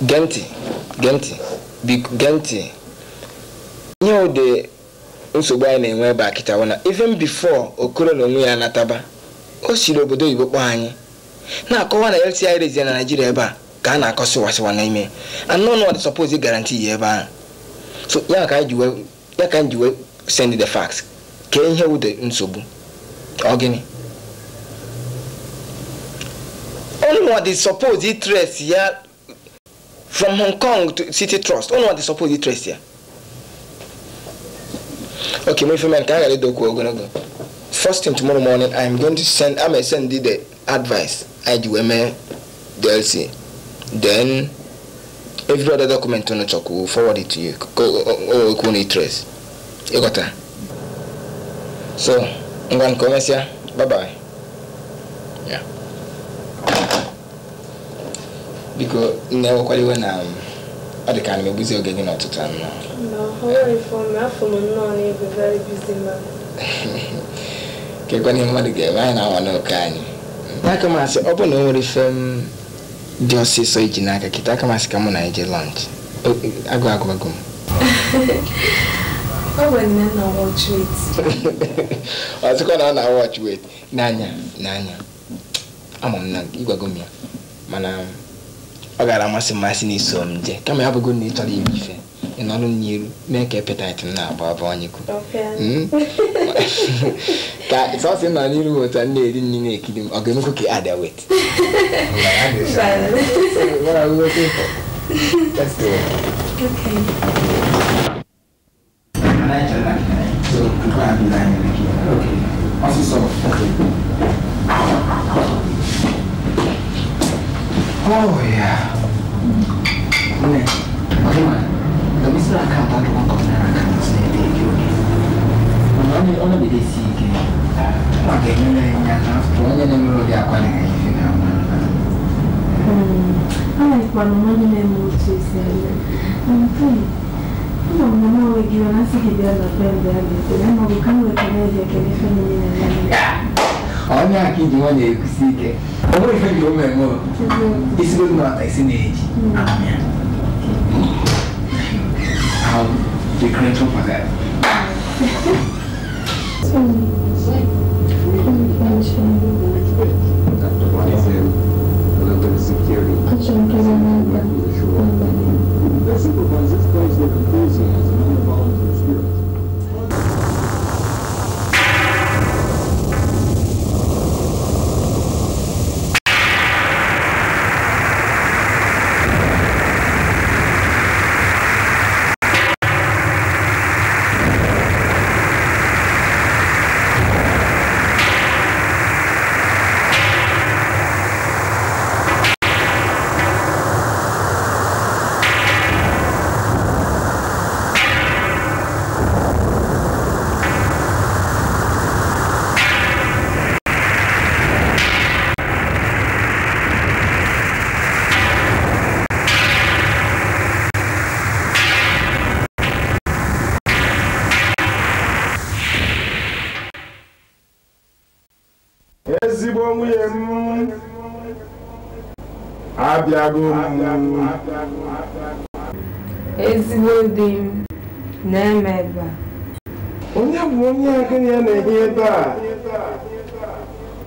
gee ntị biko gee ntị ihe ụdị nsogbu anyị na-enwe ebe a kịtawo na even before okoro na onwe ya nataba o siri obodo oyibo kpọọ anyị na-akọwa na LTI rezie na naijiria ebe a ka a na-akọ sịwasịwa n'ime anụnụ suppose garanti yi ebe ahụ so ya ka anyị ji wee send the fax kee ihe ụdị nsogbu ọ gịnị ọnụnwa dị suppose itres ya from hong kong to city trust ụnụ dị suppose di trust here. okay my friend ka a ghara ịdọkwu ogologo first thing tomorrow morning i'm going to send i'm going to send the advice i ji wee dlc then every other document ụnụ chọkwu will forward it to you go. o ekwu You got that? so ngwa nke o here. bye bye yeah. biko nnewekwaliwe na um, ọ dị ka na megbuzi oge gị n'ọtụtụ anọ kekwa ihe mmadụ ga-eme anyị na-anwa n'oke anyị n'aka masị ọ bụ na o nwere ife m um, dị ọsịsọ iji n'aka kịta aka masị ka mụ na eje lọnch agụ agụgụ m ọzọkwa na ọ na-awọch wet n'anya n'anya ama m na ịgwago m ya mana um, ọ gara amasị mmasị na iso m jee kama ya bụgo na ị chọrọ ime ife ị nọrọ n'iru mee ka epetit m na-agba abụ ọnyịkụ ka sọsị nọ n'iru otu m na-eri nri na-ekiri m ọ ga-emekwu ka ada wet Okay. Oh iya. ya. Bunda, bagaimana? Kami sudah kabar untuk menerangkan sendiri ini. Mengenai orang di sini, bagaimana yang nyata? Tuanya yang dulu di aku yang ini Hmm, aku kalau mau jadi musuh saya, mungkin. mama gitu. mama onye aka iji nwanyị ekusi ike ọ bụrụ ife gị ome mụ isigbo dị n'ọta isi na-eji Security. ezigbo di m na-eme ebe a onye bụ onye agịnị ya na-ehi ebe a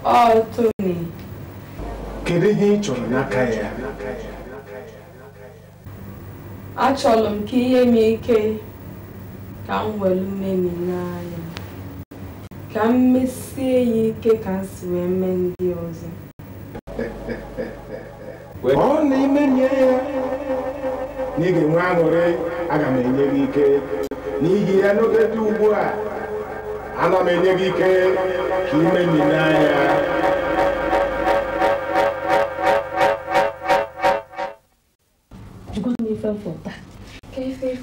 ọ Tony kedu ihe ị chọrọ n'aka ya achọrọ m ka ihe m ike ka m were mmemi n'anya ka m mesie ya ike ka m si wee mee ndị ọzọ ọ na nye ya na ị ga-enwe aṅụrị aga m ike n'ihi ya n'oge dị ugbu a ana enye gị ike ka ime n'anya ife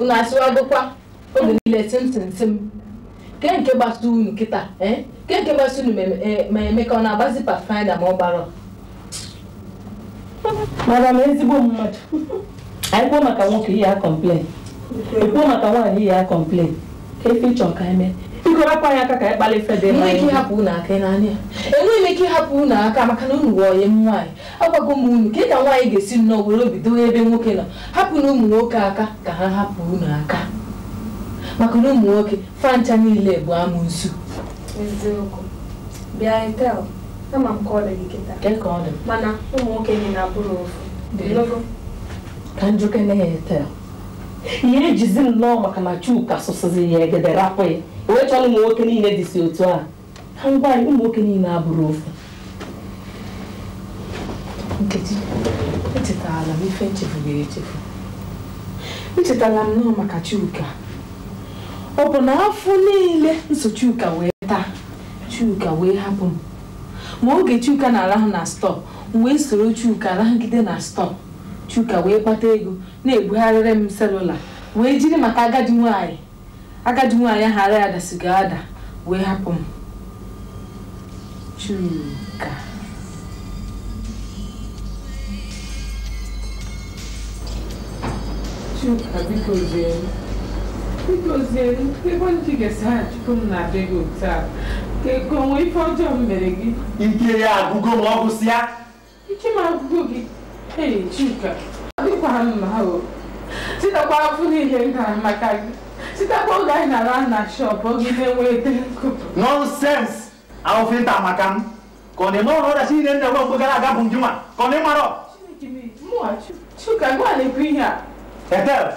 unu asịwagokwa oge niile simsimsim ke nke gbasa unu kịta e? ke nke gbasa unu e, ma eme ka ọ na-agbazi pathfinder ma ọ gbara madam ezigbo mmadụ anyị kwuo maka nwoke ihe ya kọmplen ekwuo maka nwaanyị ihe ya kọmplen ka efe ịchọ ka mee biko rapụ ya aka ka anyị kpalịsa dị mma ike ịhapụ ụnụ aka n'anya enweghị m ike ịhapụ ụnụ aka maka na unu wọnye m nwaanyị agwago m unu ka ị ka nwaanyị ga-esi nnọọ were obi bido ebe nwoke nọ hapụ na ụmụ nwoke aka ka ha hapụ ụnụ aka maka na ụmụ nwoke fancha niile bụ amụnsu eziokwu bịa etel ama m ka ọ gị kịta mana ụmụ nwoke gị na-abụrụ ofu ka njọkọ ya etel ihe ejizi nnọọ maka na chuka sụsịzi ya egede rapụ ya onwechọla ụmụ nwoke niile si otu a na ngwaanyị ụmụ nwoke niile abụrụ ofu nkechi echetala m ife nchefugoro echefu echetala m nọọ maka chuka ọ bụ na afọ niile nso Chuka wee taa chuka wee hapụ m ma oge chuka na-arahụ na stọọ m wee soro chuka arahụgide na stọọ chuka wee kpata ego na-ebugharịrị m selula wee jiri maka agadi nwanyị agadi nwaanyị ahụ ara ya dasiga ada wee hapụ m Chuka Chuka biko zie biko zie ebe ndị ga-esi ha chukwu m na-abịa gị otu a ka ego onwe ife ọjọọ m mere gị ike ya agụgo ma ọ bụsị ya ike m agụgo gị ee Chuka dịkwa mma o titakwa afụ n'ihe m gara maka gị Se tá com gás na lá na shop, alguém tem o eterno. Nonsense! Ao fim da tá macam. Quando eu não olho assim, nem eu vou pegar a gabum de uma. Quando eu moro. Moacho, chuca, agora ele pinha. Etel,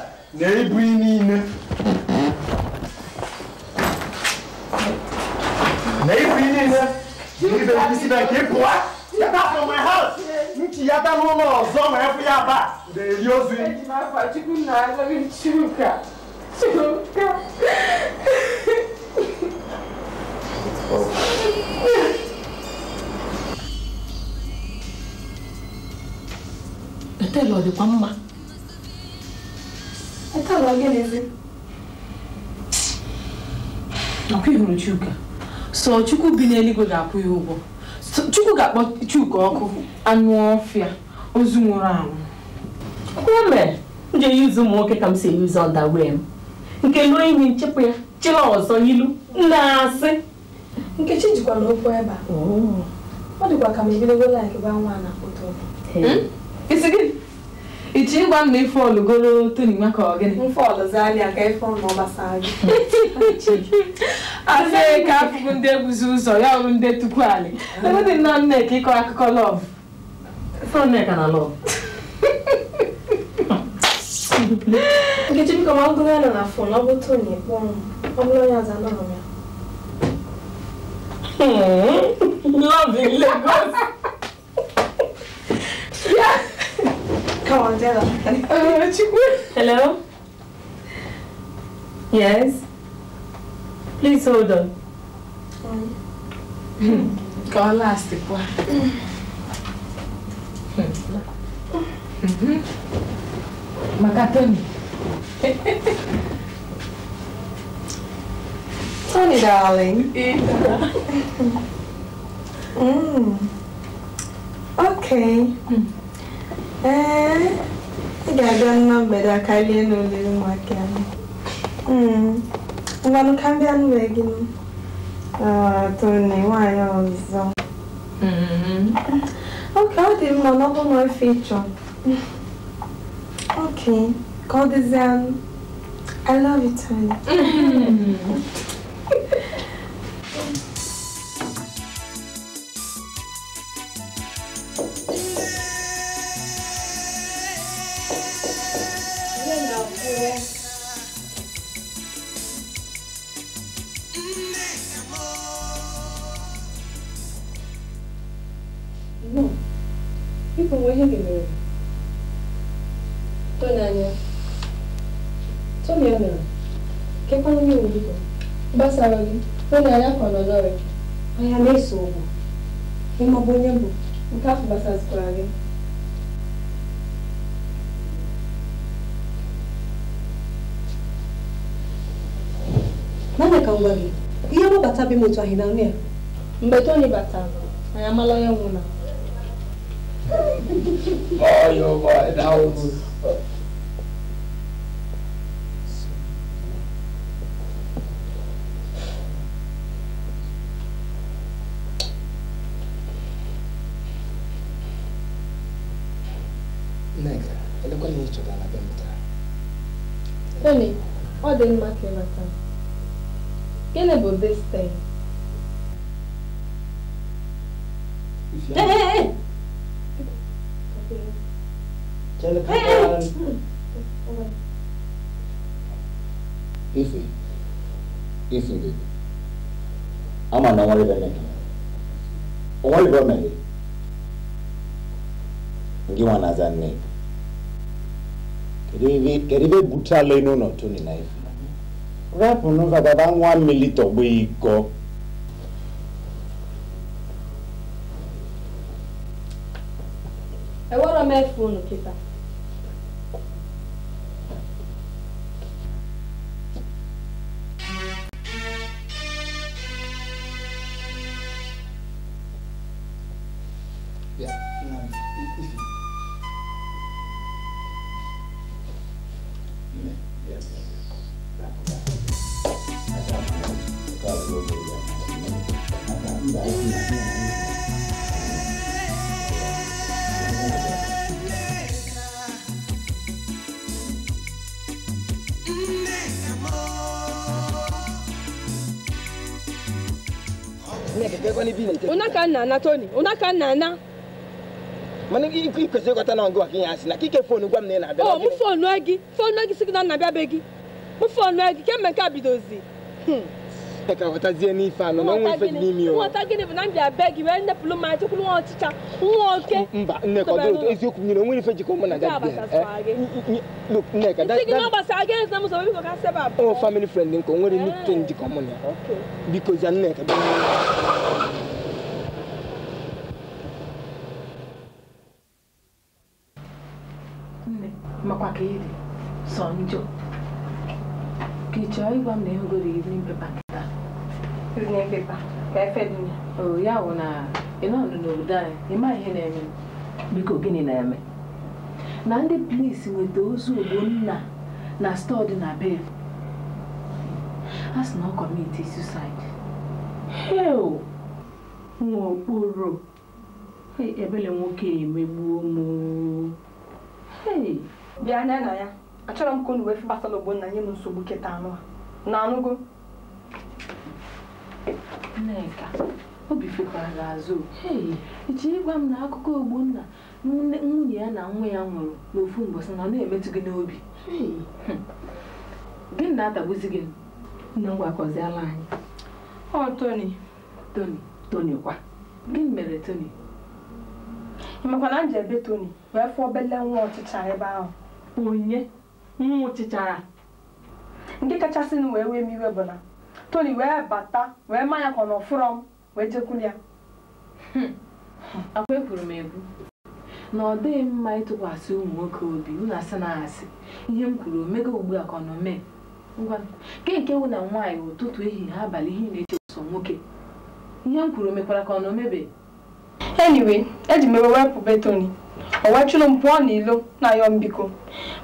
é nem pinina. Né? Nem pinina. Né? Ele veio me ensinar aqui, boa. Já tá from my house. não tinha tá no no zoma, é fui abaixo. Daí eu sou. É de uma fatica nada, me chuca. ọ dịkwa mma ọkwa ihuru Chuka so Chukwu bi n'eluigwe ga-akwụ ya ụgwọ Chukwu ga-akpọ Chuka ọkụ anụ ọfịa ozu nwụrụ anwụ mgbe m ji eyuzu ụmụ nwoke ka m si eyuzu ọda wee m nke lụọ enyi nchepụ ya chila ọzọ ilu na-asị nkechi jikwala okwu ebe a oh. ọ dịkwa ka m ebidogo laik gba nwa na foto hmm? isi gị ichi ịgwa m na ife ọlụgoro toni maka ọgịnị mfe ọlụzalịa ka ife ọnụ gbasara gị asị ka afụbụ ndị ebuzi ụzọ ya ọrụ ndị tupu alị ewedị nna nneka ịkọ akụkọ lọv nneka na lọv Nkechi biko ma ngụrụ ya nọ na fon ọ bụtụ na ịkpọ m ọ bụrụ onye ọzọ anọ Love in Lagos. Come on, tell her. Hello? Yes? Please hold on. Kọ́ láàsì pa. Makatoni. Tony, darling. Mm. Yeah. Ee, ị ga-abịa nwa mgbede a karịa n'olili ka mm. gị Tony, nwaanyị ọzọ. Mm-hmm. ọ dị mma na ọ na Okay. called the Zen. I love it, Chibugo, gbasara gị hụ na ya ka nọnọrị anya na-eso ụgwọ ịmọbụ onye bụ nke afọ gbasazikwara gị naanị ka ngwa gị ihe mgbabata bi m otu ahị na ya mgbe toni batara anyị amala onye nwụna each other na be mụtara Tony, ọ dị mma ka ịmata gịnị bụ this thing? Hey, hey, hey! Jelika, hey, hey. Ife, Ife baby, ama na ọnwa ibe mmeke, ọnwa ibe mmeke, gị nwa na-aza nne eribe butala inu n'otu ni na ifu rapụ n'ụka gaba nwa mmiri tọgbu iko ewere m efu unu kịta unaka nna na toni nna na mana ikwesịrị ịghọta na ngụ gị ya asị na kike fonu gwa m na ị na-abịa oh, ọ gị gị sị gị na nna bịa be gị gị kemgbe nke a bidozi hmm. pụtara ghọtazie n'ife anọ na ọnwa ife dị n'ime nghọta gịnị bụ na ma nwa nwa oke mba nneka na family friend nke o nwere eh. njikọ mụ na biko za nneka makwa ka ị sọ njọ ka ị chọọ ịgwa m na iri prison paper ka e oh, ya ya e e na ị nọdụ n'obodo anyị ịma ihe na-eme biko gịnị na-eme na ndị polisi nweta ozu ogbonna na stọọ dị na bel a sị na ọ kọmiti heo nwa okporo ebele nwoke emegbuo m bịa anya na ya achọrọ m ka unu wee fi ogbonna nye m nsogbu kịta anụ na Nneka obi fekwara azụ echi ịgwa m na akụkọ Ogbonna nwunye ya na nwa ya nwụrụ n'ofu mgbasa na ọ na-emetụ gị n'obi hmm. gị na-atagbuzi gị na ngwakọziala anyị ọ Tony Tony Tony kwa gịnị mere Tony ị makwa na m ji ebe Tony wee fụọ bele nwa ọchịcha ebe ahụ onye nwa ọchịchara nke kachasị m wee wee m iwe bụ na toli wee bata wee ma ya ka ọ nọ fụrọ m wee jekwuru ya hmm. akwa ekwuru m ekwu na ọ dịghị mma ịtụkwasị ụmụ nwoke obi unu asị na asị ihe m kwuru omego ugbu a ka ọ nọ mee ngwa nke nke wụ na nwaanyị ụtụtụ ehihie abalị ihe na-eche ụsọ nwoke ihe m kwuru mekwara ka ọ nọ mebe anyway eji m ewe wepụ betoni o wechụrụ m pụọ n'ilo na-ayọ m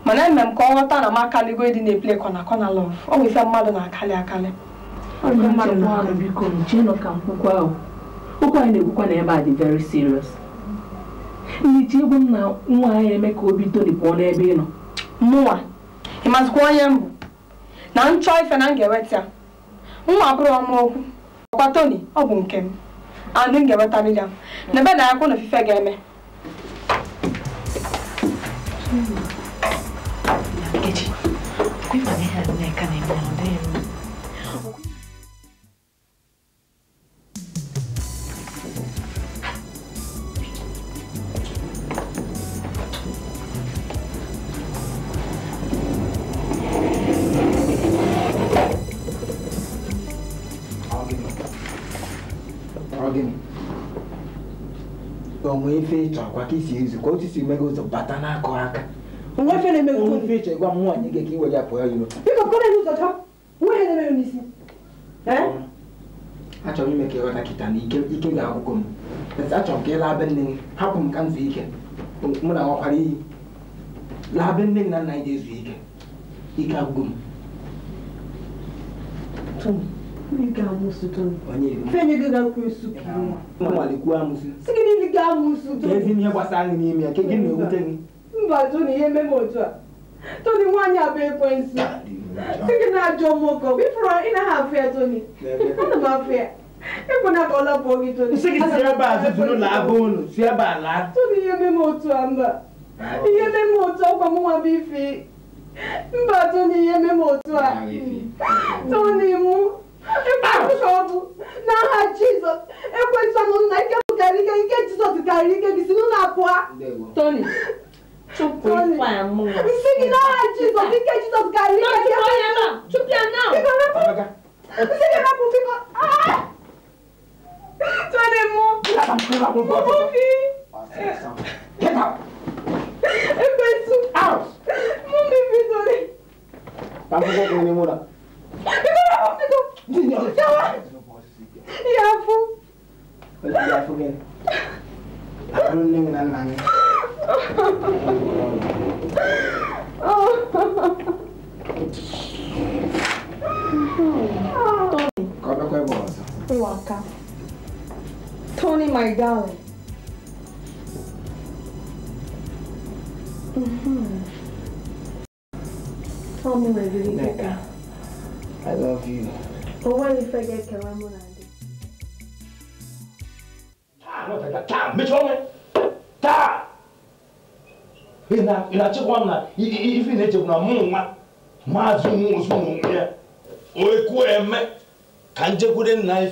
mana eme m ka ọ ghọta na m akaligo ịdị na eple kọna kọna ọ bụ ife mmadụ na-akali akali biko chenụ ka mkwụkwọ ahụ okwu anyị na-ekwukwa na ebe a dị very serious nhicha egwu m na nwa anyị eme ka obi toli pụọ n'ebe ị nọ mụnwa ị mazikwa onye mbụ na m chọọ ife na m ga-eweta ya nwa abụrụ ọma okwu ọkwa toni ọ bụ nke m Anụ m ga eweta ya na ebe na akwụ na ofufe ga-eme nwee ife ịchọkwa ka isi ezu ka otu isi meghe ụzọ bata n'akụ aka nwa ife na-emeghe nwa ife ịchọ gwa m nwaanyị gị ka iwe ya pụọ iro biko kpọrọ ya ụzọ chọọ nwa ihe na-emeghe n'isi achọrọ m ime ka ịghọta kịta na ike ga-agwụgụ m achọrọ m ka ị laa be nne gị hapụ m ka m zuo ike mụ na nwakwara iyi laa be nne gị na nna anyị ga-ezu ike ike agwụgụ m onye ga-amụsịtụnụ igwe ga-akwụ esu si gị ezi ihe gbasara anyị n'ime ya nke gị na-ewute gị mba toni ihe eme m otu a toni nwaanyị abụ si gị na-ajọ m ụkọ ịfụrụ ị naghị afụ ya toni ana m afụ ya ekwena ka ọ lapụọ gị toni si gị si ebe a na abụ unu si ebe a laa toni ihe eme ihe eme m mba ihe eme m otu a toni mụ nderike ike jizọs karịrị ike gị si n'ụlọ apụa toni Chụpụ ife amụ. Isi gị n'agha Jizọs, ike Jizọs karịrị ike gị. Chụpụ ya nọ, chụpụ ya nọ. Biko wepụ. Isi gị wepụ biko. Tony mụ. Mụ fi. Ekwesu. Mụ mi fi Tony. Tampoco tiene mura. Biko wepụ biko. Yafu. 나 속에 아론님 난 망해. 꺼져 꺼져 먹었어. 우와 아까. Tony, my darling. Mm-hmm. Tell me, my beauty. I love you. But what if I get Kalamunai? taa mechie ọnụ taa ị na-achịkwa m na ife na na ya eme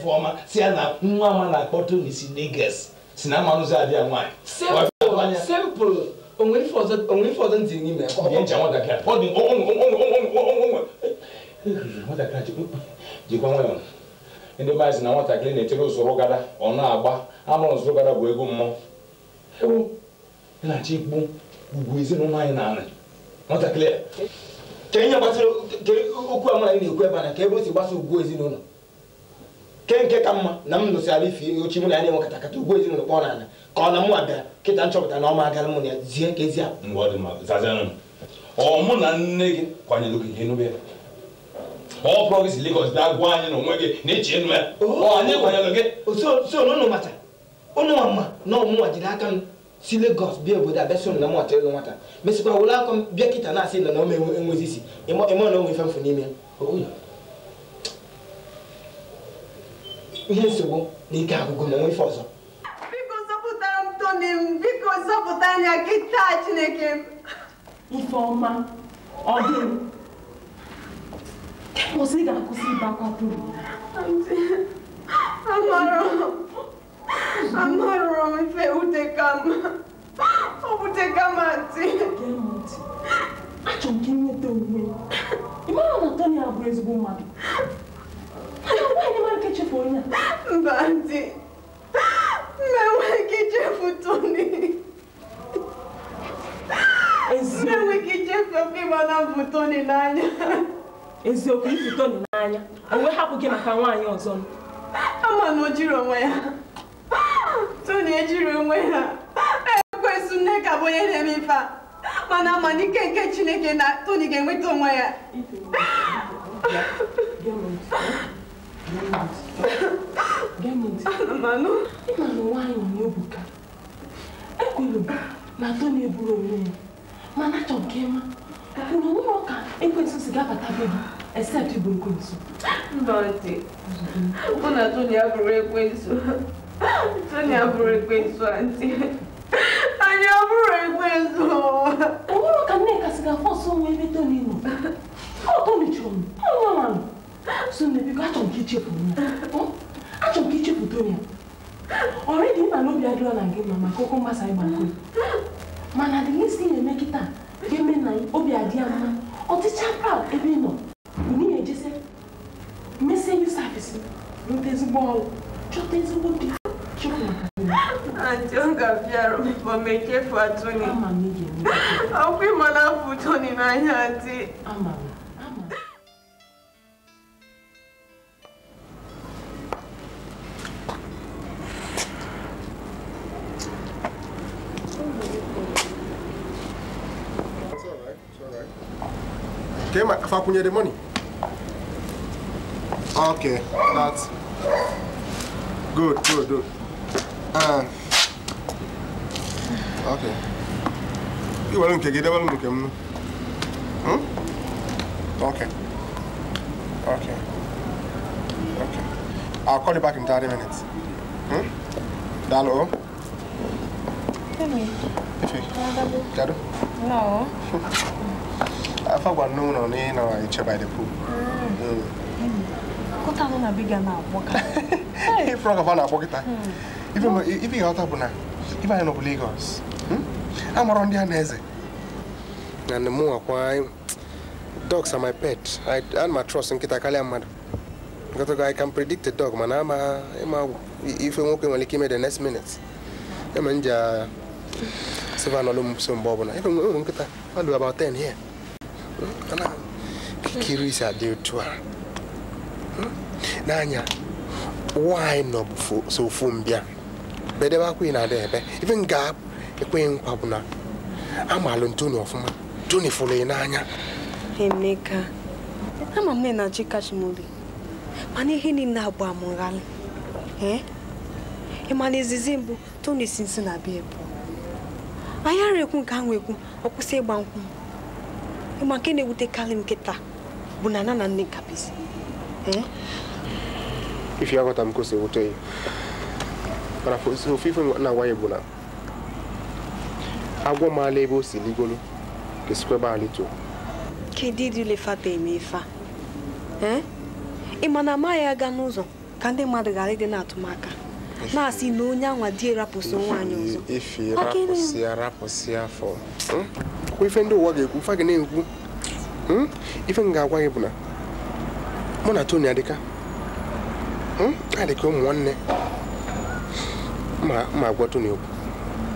ka si ya na nwa ama na-akpọta n'isi Lagos si na amanụzi abịa nwanyị ọzọ n'ime ndị na nwatakịrị na-echere usoro gada ọ agba amụrụ nso gara bụ ego mmụọ ewu ịlachi ikpu ugwu ezinụlọ anyị na anị nwatakịrị ka ihe gbasara okwu amara anyị na-ekwu ebe a ka ebe o si gbasa ugwu ezinụlọ ke nke ka mma na m ala ife ochi mụ na ya na-enwe kata kata ugwu ezinụlọ kpọọ n'ala ka ọ na mụ abịa kịta nchọpụta na ọma agara mụ na ya zie ka ezi akpa ọ mụ na nne gị kwanyere ogige n'ubi ya ọ pụrụ gị si Lagos bịa gwa anyị na onwe gị na echi enu ya oh. anyị kwanyere gị oh, so n'ụnụ mata ụnụ ọma na ọmụnwa jiri aka m si Lagos bịa obodo abịasị na m ọchọ ịlụ nwata mesịkwa were aka m bịa kịta na-asị ịlọ na ọma enwezi isi ịma na onwe ife mfu n'ime ihe nsogbu na ike agụgụ na onwe ife ọzọ biko zọpụtara m Tony m biko zọpụta anya gị taa Chineke m Ifeọma ọ dị kwụsị ga-akwụsị ịba kwapụrụ amara ọtị achọrọ m ka nweta onwe ị mara na tony abụrụ ezigbo mmadụ nwaanyị nke chefu onye a mba dị menweghị ichefu tony menweghị ichefu ịmana bụ tony n'anya eziokwu ifu tony n'anya onwe hapụ gị maka nwaanyị ọzọ ama na o jiri onwe ya tony ejiri onwe ya nne e ka bụ onye na-eme ife a mana ama na nke chineke na toni ga-enweta onwe ya na toni eburu onwe ya mana achọ nke ma kwuru onwe ọka ekwensụ si gabatabe gị except burukwensu ndọtị mụ na toni abụrụ ekwensu toni abụrụ ekwensu antị Anya bụrụ ekwe zo. Onwere ka Nneka si ga-afọ ọsọ nwa ebe toro inu. Ọ tolichụrụ m, ọ nọ na nụ. So nne biko achọrọ m ka ichefuru ya. Achọrọ m ka ichefuru Tonia. Ọrịdị nna n'obi adịrọ na gị ma maka okwu mgbasa ịgba nkụ. Mana dị isi na-eme kịta ga-eme na obi adị ya mma. Ọtịcha proud ebe ị nọ. Unu ya ejesi mesie yu safisi rute ezigbo ọrụ chọta ezigbo di Antonga bịara ma m echefu atụghị ọkwa ịmana afụto n'anya dị Fakunye the money. Okay, that's good, good, good. Ah. okay. You want to get it? Want to Hmm? Okay. Okay. Okay. I'll call you back in 30 minutes. Hmm? Dalo? Hey. Dalo? No. I forgot no noon on in or each by the pool. Hmm. Mm. Mm. Go down on a bigger now, walker. Hey, frog of an apocrypha. ife ịghọta bụ na ife anyị nọbụ Lagos amarọ ndị a na-eze and more why dogs are my pet and my trust nkịta karịa mmadụ Because I can predict a dog mana ama ịma ife when he came in the next minute I'm in the seven or so mgbe ọbụla ife nwere nkịta do about 10 here kiri isi adị to her. Hmm? n'anya why not so ofu bedebe akwa ị na-ada ebe ife m ga e nkwa bụ na amalụ ntoni ọfụma toni fụrụ ị e n'anya Emeka e ama m na chi kachi m obi mana ihe niile abụ amụghalị ị ma na izizi mbụ toni si nsi na bịa ebu anyị ara ekwu nke anwụ ekwu ọ kwụsị ịgba nkwụ ịma nke na-ewutekarị ewute m nkịta bụ na nana nne kabizi ife aghọta m kwụsị ewute ya mana ofe ife na agwa ya bụ na agwọ maala ebe o si ligolu ga-esikwa ebe ala ito kedu ịdị ilefata eme ife a ịma na amaghị aga n'ụzọ ka ndị mmadụ ghara ịdị na-atụmaka na-asị na onye anwa di erapụsị nwaanyị ọzọ ife rapụsị kwa ife ndị ụwa ga-ekwu fa gị na-ekwu ife m ga-agwa gị bụ na mụ na toni adịka anyị ụmụ nwanne Ma, ma wakwa tou ni wap.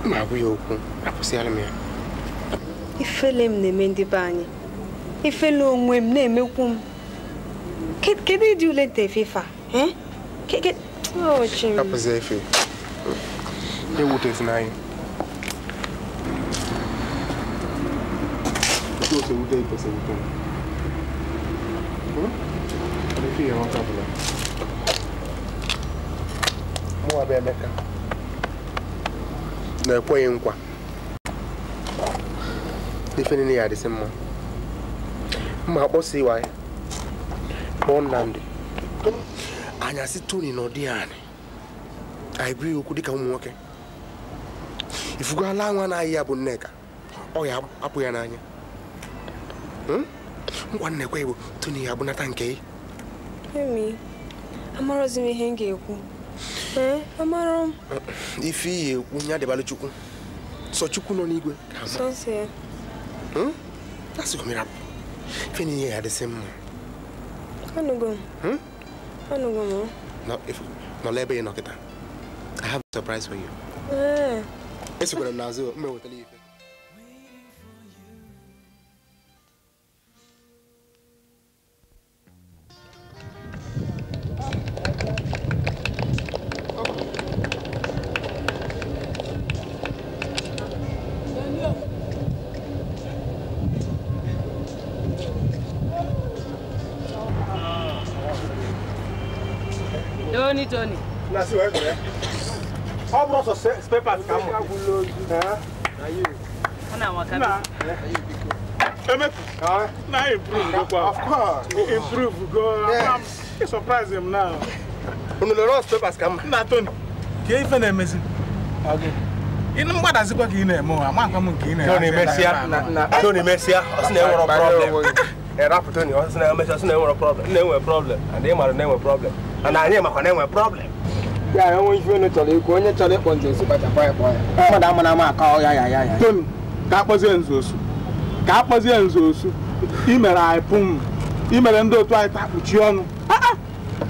Ma wap wiyo wap. Apo se ale me a. I fe lem ne me di banyi. I fe long we mne me wap. Ke, ke di di ou le te fifa? He? Ke, ke, ou che mi. Apo se e fi. De ou te fna yi. I te ou se ou dey pe se wap. Apo se yi an wakwa wap. Mwa be a dekka. na-ekweghị nkwa ife niile ya adịsị mma mma akpọsi iwa ya kpọọ Nnamdị anya si Tony na ọdị anyị anyị bụ okwu dịka ụmụ nwoke ifugo ala nwa na-ahị ya bụ Nneka ọ ya apụ ya n'anya hmm? ngwa nnekwe bụ Tony ya abụnata nke gị amarozi m ihe m ga-ekwu ee amarọ m ife iyi ekwu ya dịbalụ chukwu sọ chukwu nọ n'igwe hmm? ife niile ya adịsị mma hmm? nọla ebe ị nọ I have a surprise for you. esokwara m n'azụ mma wetara ya ife Tony Tony. Na see where there. All bros of spare parts come. Eh? Na you. Ona waka. Na you Na improve go kwa. Of course. Improve go. I'm surprise him now. Unu lo spare parts come. Na Tony. Ke ife na emezi. Okay. Inu mgbadazikwa ka ị na-eme ụwa, ma nke ị Tony mesịa, na Tony e eh, e mesịa, ọ sị na enwere problem. Erapụ Tony, ọ sị na emesịa, ọ sị na problem. Na enwere problem, and ị maara na enwere problem. na anyị makwa na enwe problem ya ya nwe ife chọrọ ikwu onye chọrọ ịkpọ nze osu kpachakwa ya kpọọ ya mmadụ ama na ama aka ọya ya ya ya ka akpọzie nze osu ka akpọzie nze osu imere anyị pụm imere ndị otu anyị takpuchi ọnụ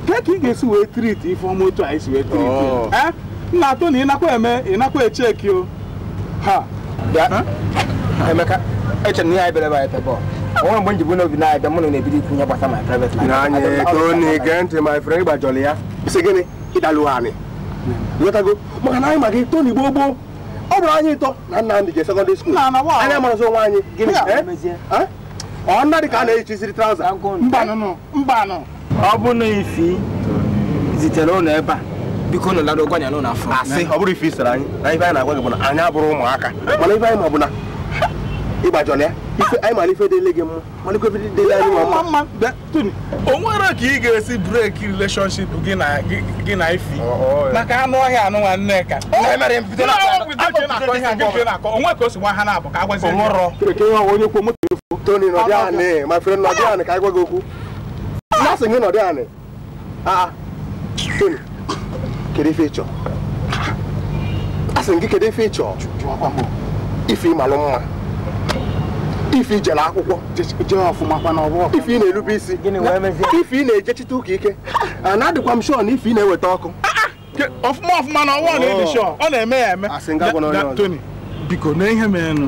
ke ka ị ga-esi wee triti ife ọma otu anyị si wee triti oh. ee eh, nna atụ na ịnakwa eme ịnakwa echeki o ha emeka eche na ihe anyị bere anyị tebọl onwe mgbe m n'obi na-abịa mụ na na-ebido ikwu ihe gbasa my private life na anyị na-ege ntị my friend ya si gịnị ịdalụ anyị ịghọtago maka na anyị ma gị toni gboo gboo ọ bụrụ anyị ịtọ na nna m je sekọndịrị skuul anyị amarazi onwe anyị eh? ọ nna dị ka a na traụza mbanụ ọ bụ na ifi zitere ụlọ ebe a biko nụ n'ụlọ ọ bụrụ anyị na ife anyị na-agwa gị anyị ụmụaka mana ife anyị ma bụ ịgbajọla ya anyị mara ife gị mma malekwa ife mma mma ka ị ga-esi breki relationship gị na ifi oh, oh, maka anụ ọhịa anụ nwa nneka onwe oh, ka o si ha na-abụ ka kwuo moto efu toni nọdị anị ma fere nọdị anị ka anyị gwa gị okwu gị nọdị anị toni kedu ife ịchọ asị gị ah, ah. kedu ife ịchọ ife ịmalụ mma ife ijere akwụkwọ jee ọfụma ife ị na-erube isi ife ị na-ejechite ụka ike na adịkwa m shọ na ife ị na-eweta ọkụ ọfụma ọfụma na ọnwa na-edi shọ ọ na-eme ya eme Tony biko na ihe merenụ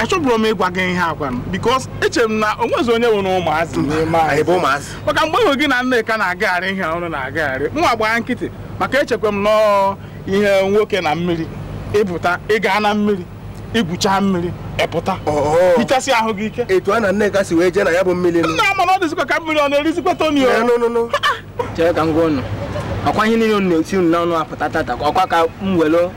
achọbụrụ m ịgwa gị ihe agwanụ bikos eche m na onwezi onye nwere ụmụazị maka mgbe ịhụ gị na Nneka na-agagharị ihe ọrụ na-agagharị nwa gbaa nkịtị maka echekwa m nọọ ihe nwoke na mmiri ịpụta ịga na mmiri igwucha mmiri epụta hichasị ahụ gị ike etu a na Nneka si wee jee na ya bụ mmiri nna ama na ọ dịzikwa ka mmiri ọ na-erizikwa Tony chere ka m gwa ụnụ ọkwa ihe niile na-esi unu n'ọnụ apụta tata ọkwa ka m were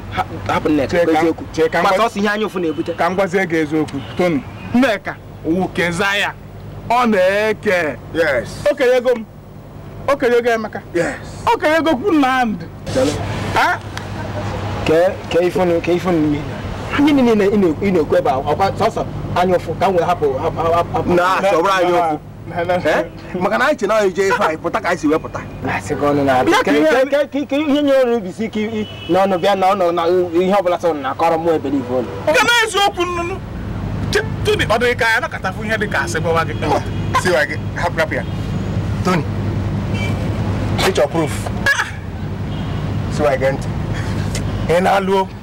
hapụ Nneka eziokwu gbata ọsọ ihe anya ụfụ na-ebute ka m gwazie gị eziokwu Tony Nneka wukeza ya ọ na-eke okenye ego m okenye ego Emeka okenye okenyego kwu Nnamdị kee ifunu mmiri gịnị niile ị na-ekwu ebe ọkwa sọsọ anya ụfụ ka m wee hapụ na chọbụrụ anyị okwu maka na anyị che na anyị jee ife anyị pụta ka anyị si wepụta ihe nye ọrụ obisi ike n'ọnụ bịa na ọnụ na ihe ọbụla sọ na-akọrọ mụ ebere ife ụlọ nke n'eziokwu nnụnụ toni ọ dịghị ka ya nakọtafụ ihe dị ka asị gbawa gị siwa gị hapụ hapụ ya toni picture proof siwa gị ntị ị na-alụ okwu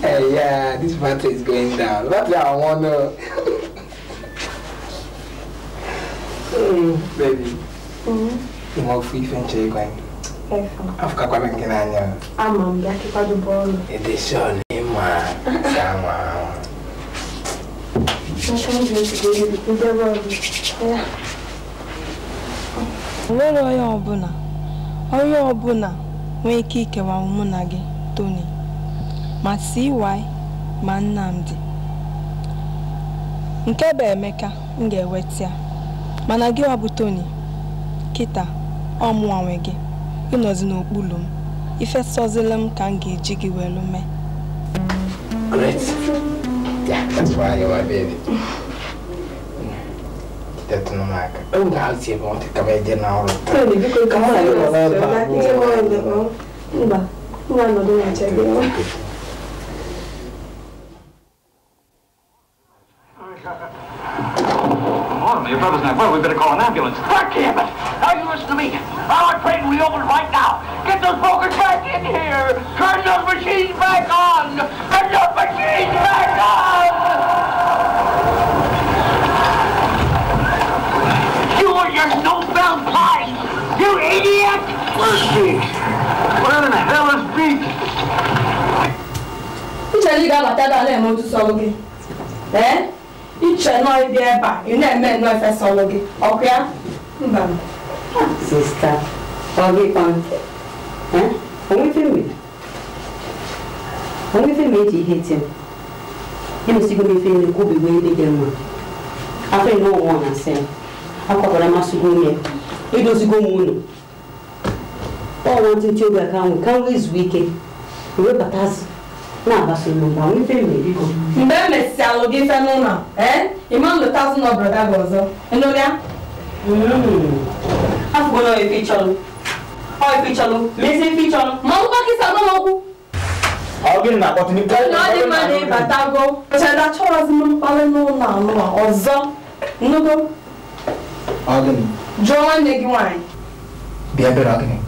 Hey, eh, yeah, this battery is going down. That's what I want to. mm, baby. Mm. Mo fi ife nche igwa gị. Afụkakwa m nke na-anya n'anya. Ama m ya kịkwado bọọlụ. Edeshọn ịma saa nwa ahụ. nwere onye ọbụla onye ọbụla nwee ike ikewa mụ na gị, Tony. ma CY ma Nnamdi nke bụ Emeka m ga-eweta ya mana gị ọ bụ Tony kịta ọ mụnwa gị ịnọzi n'okpuru m ifesozila m ka m ga-eji gị welu mee Great. that's why baby. taa my word, we better call an ambulance. Fuck him! Now you listen to me. Our train will be open right now. Get those brokers back in here. Turn those machines back on. Turn those machines back on. You and your snowbound pies. You idiot. Where's Beach? Where in the hell is Beach? Uche, you got my dad, I'll let to Sogogi. Eh? iche nọọ ịbịa ebe a ị na-eme nnọọ efesa ọlụ gị ọkụ ya mba sista ọ gị kwan onwe ife eji ihe tie emesigo m ife na-ekwubigo ihe dị mma afọ ime ọnwụọ na asị m akwapụrụ amasịgo onye edozigo m unu ọnwa ntị obi aka nwụ ka m wee zuo ike webatazi Now that's your number. We pay me. Mbe me si alogi fe no na. Eh? Imam the thousand of brother gozo. Eno dia? Mm. Afu go no e fi cholo. O e fi cholo. Me se fi cholo. Ma u ba ki sa no mo ku. Ogi na ko ne? ka. No di ma ni batago. Che da chora zi mo pale no na no ma ozo. Nugo. Ogi ni. Jo wan de gi wan. Bia bera ogi ni.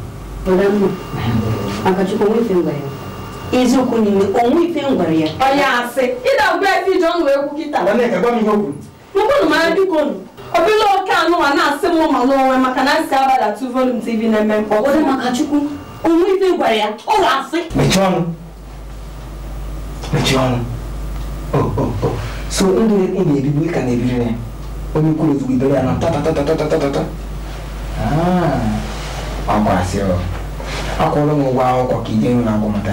eziokwu niile onwe ife m gwara ya onye asị ịdagbu efe ije ọnụ wee kwu kịta mụkwụnụ mara bikonu obila oke anụwa na-asị m ma n'onwe maka na nsị abalị atụ volum tv na-eme mkpọ ọ maka chukwu onwe ife gwara ya ọ ga-asị mechie ọnụ mechie ọnụ so ndụ ị na-eribu ka na-ebiri ya onye kwuru ozugbo ibere ya na tatatatatatatatata akwara ah, sị akwụọla m ụgwọ akwụkwọ ka ide nwe na-agwọ mata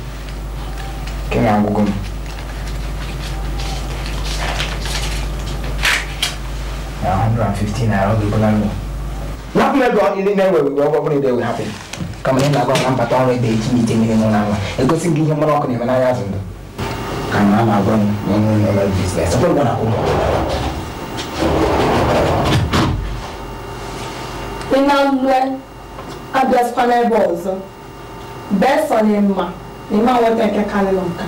Kenya nwa m na 150 naira oge bụla nụ napụ ego ndị na-ewe iwe ọgwọ ewe kama ị na-agwa na mbata ọrụ ebe eji ite mmiri nwa nwa egosi gị ihe mmanụ ọkụ na-eme n'ahịa azụ ndụ ka na a agwa m na onye ụlọ ọrụ biznes ọbụrụ na ị na n'ebe ọzọ ni máa wọ tẹ̀kẹ́ kalẹ̀ lọ́nkà.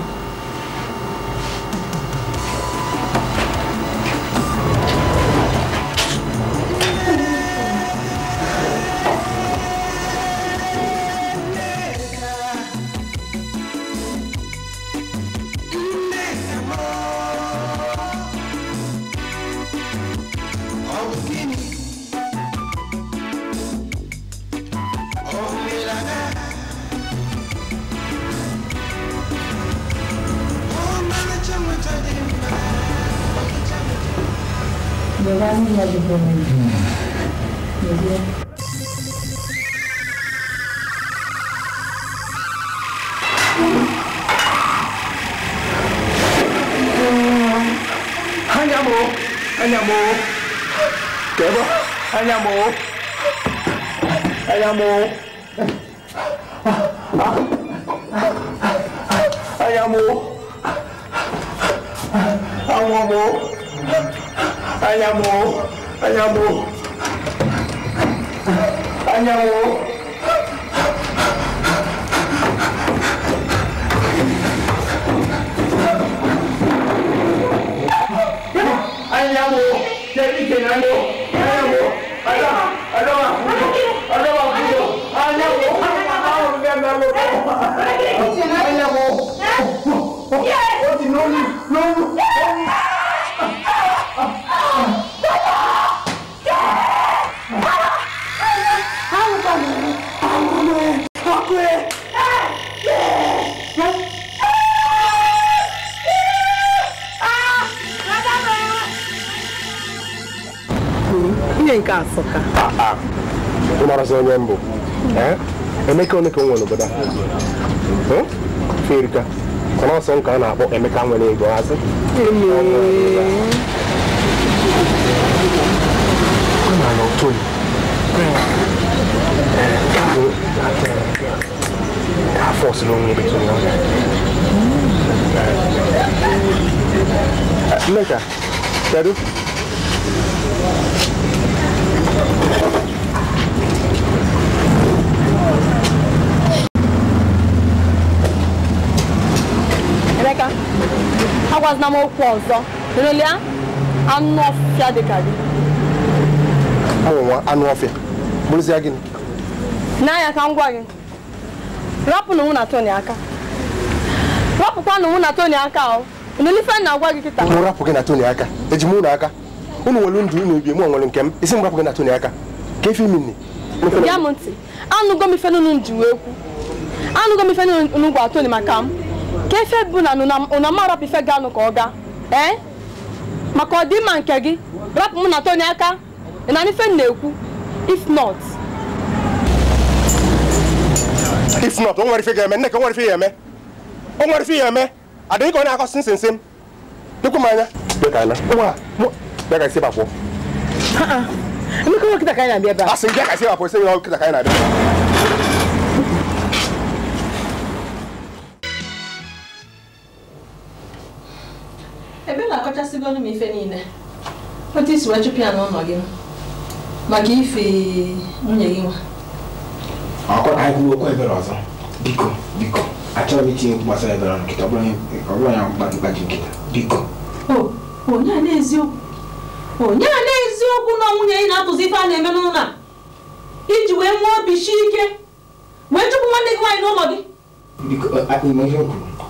kamu nih gue ini n'amaokwu ọzọ lelee anụ ọfịa dị ka gị anụ ọfịa bụrụzie gịnị n'anya ka m gwa gị rapụnụ mụ na Tony aka rapụkwanụ mụ na aka ọ ife na-agwa gị kịta mụ rapụ gị na Tony aka eji m ụlọ aka unu nwere ndụ unu ebie mụ nwere nke m isi m rapụ gị na aka ka efe imi nne ya m ntị anụgo m ife ji wee kwu anụgo ka efe bụ na unu amarọpụ ife ga-anụ ka ọ gaa ee eh? maka ọdịmma nke gị rapụ mụ na Tony aka na ife na-ekwu if not if not o nwere ife ga-eme nneka o nwere ife ya eme o nwere ife ya eme adịghị ka ọ na-akọsị nsense m dịkwa m anya bịa ka isi bakpọ emeka nwe kịta ka anyị na-abịa ebe a asị m bịa ka isi bakpọ isi nwe kịta ka anyị na-abịa ebe na-akọchasịgolu m ife niile otu isi wee chụpụ ya n'ụlọ gị maka ife nwunye gị nwa biko biko achọghị m itinye okwu gbasara ebere nkịta ọ bụrụ ya gbaji nkịta biko onye a na-eziokwu na nwunye ị na-atụzi ife a na-eme n'ụlọ a iji wee nwee obi sie ike wee chụpụ nwanne gị nwaanyị n'ụlọ gị e- e-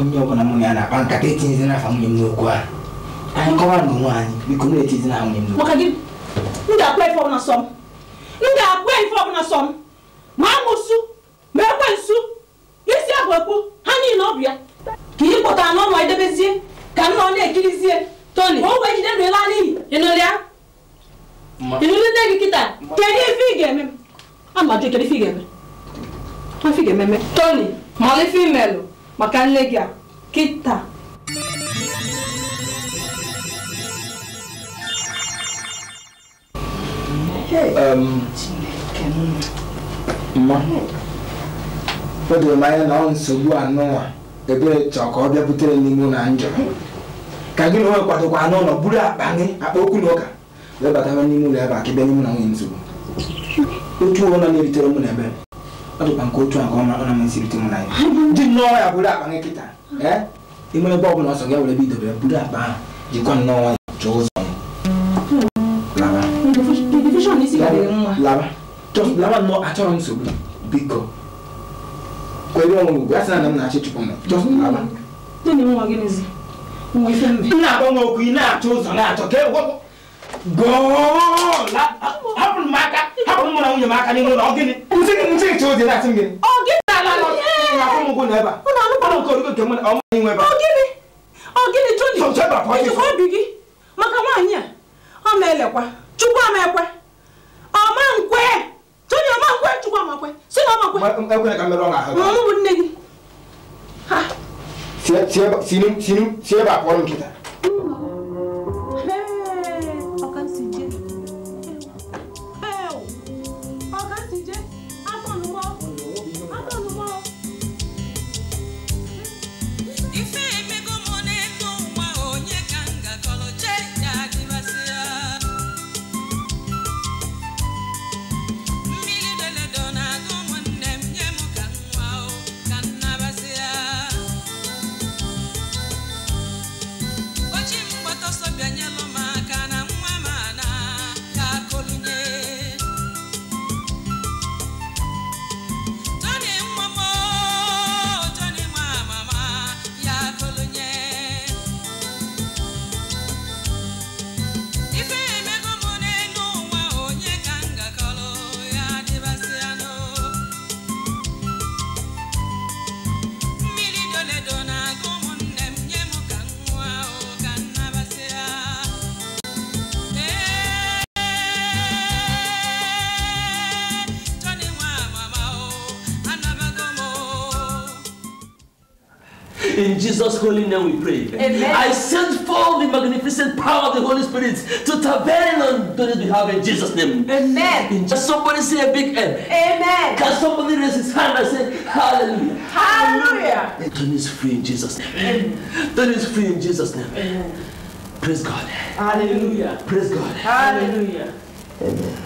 onye ọbụla mụ ya na-akpa nkata etinye n'afa nwunye m n'okwu a anyị kọwa na onwe anyị biko na-etinye na nwunye m n'okwu m ga-akpa ife ọbụla sọ m m ga-akpa ife ọbụla sọ m ma amụsụ ma ekwe nsu isi abụ ekwu ha niile ọ bụ ya ka ị kpọtara n'ọnwa edebezie ka nna ọ na-ekirizie toni ka o wee jide ndụ ịla n'iyi ịnụrịa ịnụrụ nne gị kịta kedu ife ị ga-eme m amajụ kedu ife ị ga-eme ife ị ga-ememe toni ma ọ ife imelụ maka nne gị a kịta o doro m anya na ọ nsogbu anụnwa ebere chọọ ka ọ bịa butere n'ime na njọ ka gị na onwe kwadokwa anụ ụlọ buru akpa gị akpa okwu na ụka wee batawa n'ime ụlọ ebe a ka bịa n'ime na nwunye nsogbu otu ụlọ na-eritere ụmụ na ebere ɔdi kpa nkotu a kɔma ɔnam nsiri ti mu na yi di nɔɔ ya buda akpa ne kita ɛ emu ne bɔbu na ɔsɔ gɛ wɛrɛ akpa ha di kɔn nɔɔ wa tso zɔn laba laba tɔ laba nɔ atsɔrɔ nsobi bi kɔ kɔ ebi wɔn na ahyɛ tukɔ mɛ tɔ nna bɔ ŋa okuyi n'a tso zɔn n'a tɔ kɛ wɔkɔ goola hapụrụ m aka hapụrụ mụ na nwunye m aka n'ime ụlọ gịnị nche che ozi na-asị m gịnị obi gị maka nwaanyị a ọ ma-elekwa chukwu amekwe ọma nkwe tony ọma nkwe chukwu amakwe si na ọmakwe bụ nne gị si ebe a kpọrọ nkịta In Jesus' holy name we pray. Amen. I send forth the magnificent power of the Holy Spirit to tabernacle on those behalf in Jesus' name. Amen. Can just somebody say a big M. Amen. Can somebody raise his hand and say hallelujah? Hallelujah. Turn is free in Jesus' name. Amen. Tony is free in Jesus' name. Amen. Praise God. Hallelujah. Praise God. Hallelujah. Amen.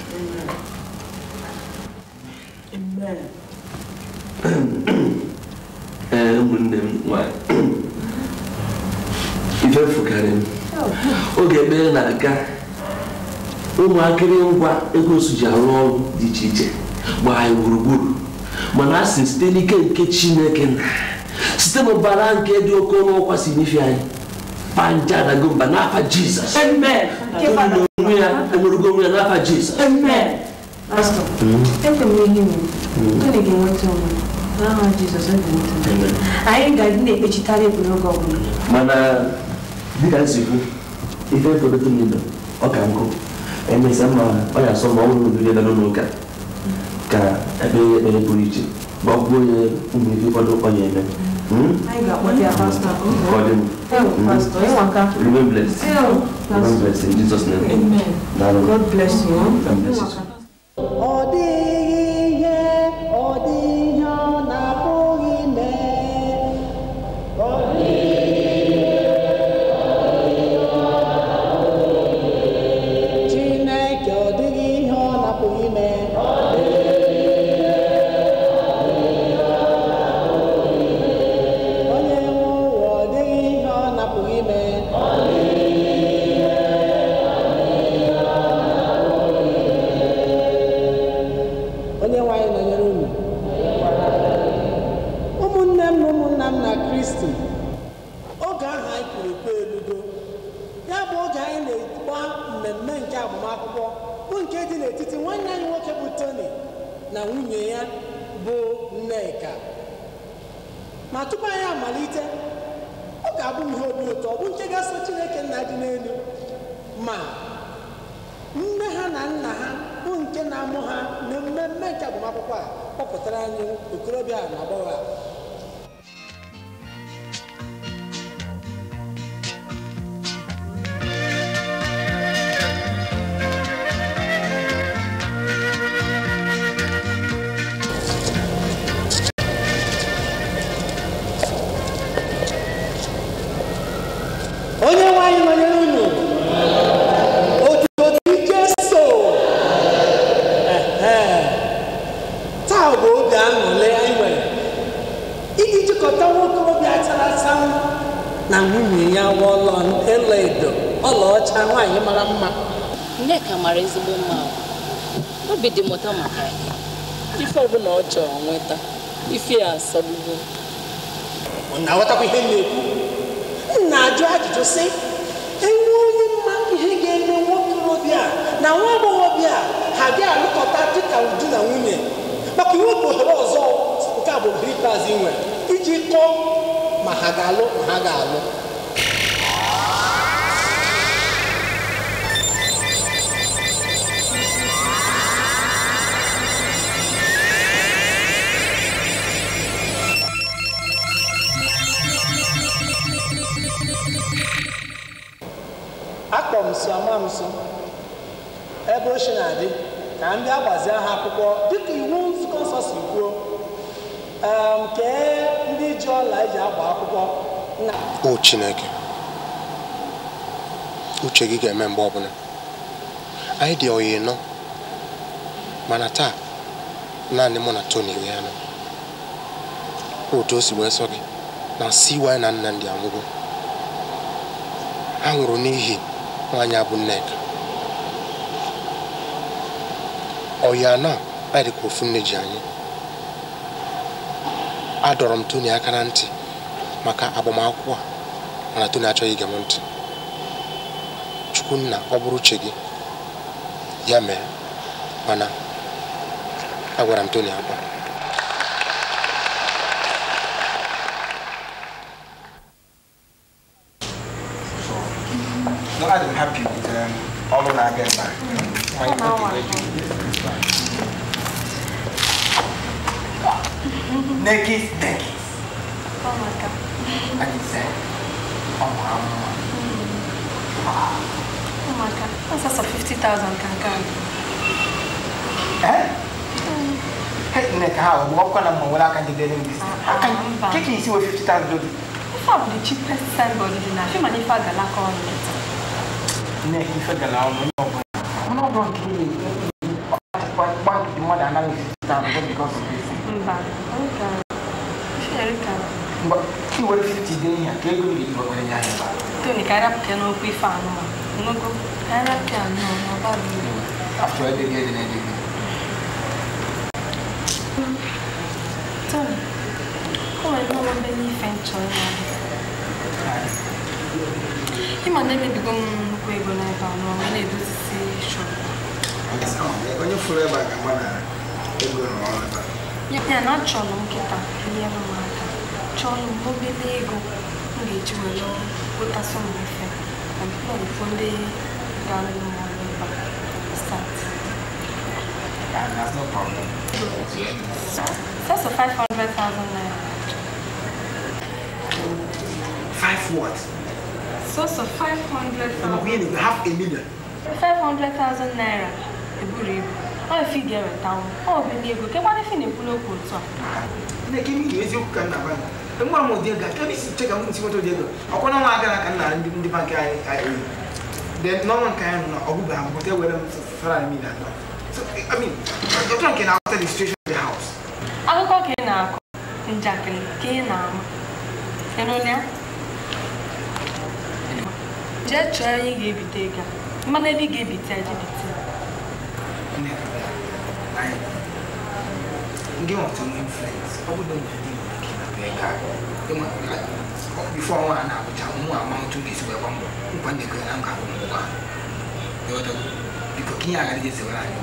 Amen. Amen. ụmụnne m nwanyị ife fụkarị m oge ekpere na-aga ụmụakịrị ngwa ego su arụ ọrụ dị iche iche gbaa anyị gburugburu mana a sị site n'ike nke chineke na site n'ụbara nke dị oke ọnụ ọkwa si n'ife anyị panja na gomba n'afa jizọs onwe ya enwerugo onwe ya n'afa jizọs Ah, é né? é mana dịka nsikwu ife fọdụtụ n'ilu ọ ka nkụ emesịa ma ọ ya asọ ma ọ nwere obere na n'ụlọ ụka ka ekpere ya ekpere pụrụ iche ma ọ kwuo ya ụmụ ife ụfọdụ ọ ya eme hmm? ah, hmm? Remain blessed. Remain blessed in Jesus' name. Amen. God bless you. God bless you. petróleo, o clube é na boa. ya mara ezigbo mma obi dị mụta maka ya ife ọbụla ọ chọrọ nweta ife ya asọgbugo ọ na-aghọtakwa ihe na-ekwu m ajụ ajụjụ sị enwe onye mma ihe ga-eme nwokorobịa na nwa agbọghọbịa ha bịa alụkọta dịka uju na nwunye maka iwepụ ohere ọzọ nke a bụ ohere ikpeazụ nwere iji kọọ ma ha ga-alụ ma ha ga-alụ akpọ m so ama m so ebe ochie na-adị ka ndị agbazie aha akwụkwọ dịka iwu nzukọ nsọ si kwuo kee ndị ji ọla eji agba akwụkwọ o Chineke uche gị ga-eme mgbe ọbụla anyị dị oyi nọ mana taa naanị mụ na Tony wee anọ otu o si wee sọ gị na si wanyị na nna ndị anwụgo ha nwụrụ n'ihi nwaanyị abụ bụ nneka ọ ya na ofu nne ji anyị adọrọ m toni aka na ntị maka agbamakwụkwọ a mana Tony achọghị ige m ntị nna ọ bụrụ uche gị ya mee mana agwara m toni akwa I'm happy with um, all of our guests. Mm. Mm. Naked, naked. Oh my God. And he said, oh my God. Oh my God. That's a 50,000 kankan. come. Eh? Mm. Nek how? What kind of money can you get in this? Ah, I can. Can you see what 50,000 dollars? If I'm the cheapest seller in the nation, I'm not going to ne kifa gana ọnụ n'ọgụ n'ọgụ nke gbalịdị mmadụ anaghị esite na mbụ bikos i were 50 dee ihe ka ego ndị igbo kwere ya anyị Tony, cara pequena, eu fui fã, não. Não era pequeno, não, não barulho. Ah, tu é de guerra, né, de guerra. Tony, como é que eu vou bem em frente, olha? ịma na emebigo m nnukwu ego n'ebe a n'ọnwa na-edozisi shọp onye fụrụ ebe a ga-agba na ego n'ọrụ ya na achọrọ m nkịta enyere m aka chọrọ m obere ego m ga-eji were kpotasị m efe na mkpọrụfọ ndị gara m ọrụ ebe a start and that's no problem. That's a 500,000 naira. Five what? source of 500,000. Really, you have a million. 500,000 naira. A Eburi. Oh, if you get a town. Oh, when you go, can how if you pull up on top. They give me the easy can have one. And one more dear guy, can you check out see what they do? I can't know I can't and the bank I Then no one can know or go back, but they will for I mean that. So, I mean, you're talking after the situation of the house. I'll go in now. In Jacqueline, Kena. And on there? jee chọọ anyị ga-ebite ego mmanụ ebe ị ga-ebite ya jebite ndị nwata nwe influence ọ bụrụ na ndị nwere ike ịnabụ ego a bifo ọnwa a na-abụcha ụmụ ama ntụ ga-esi wee gba mbọ nkwa ndị ekwe na nka bụ mbụ ha biko ka ihe agaghị ezewere anyị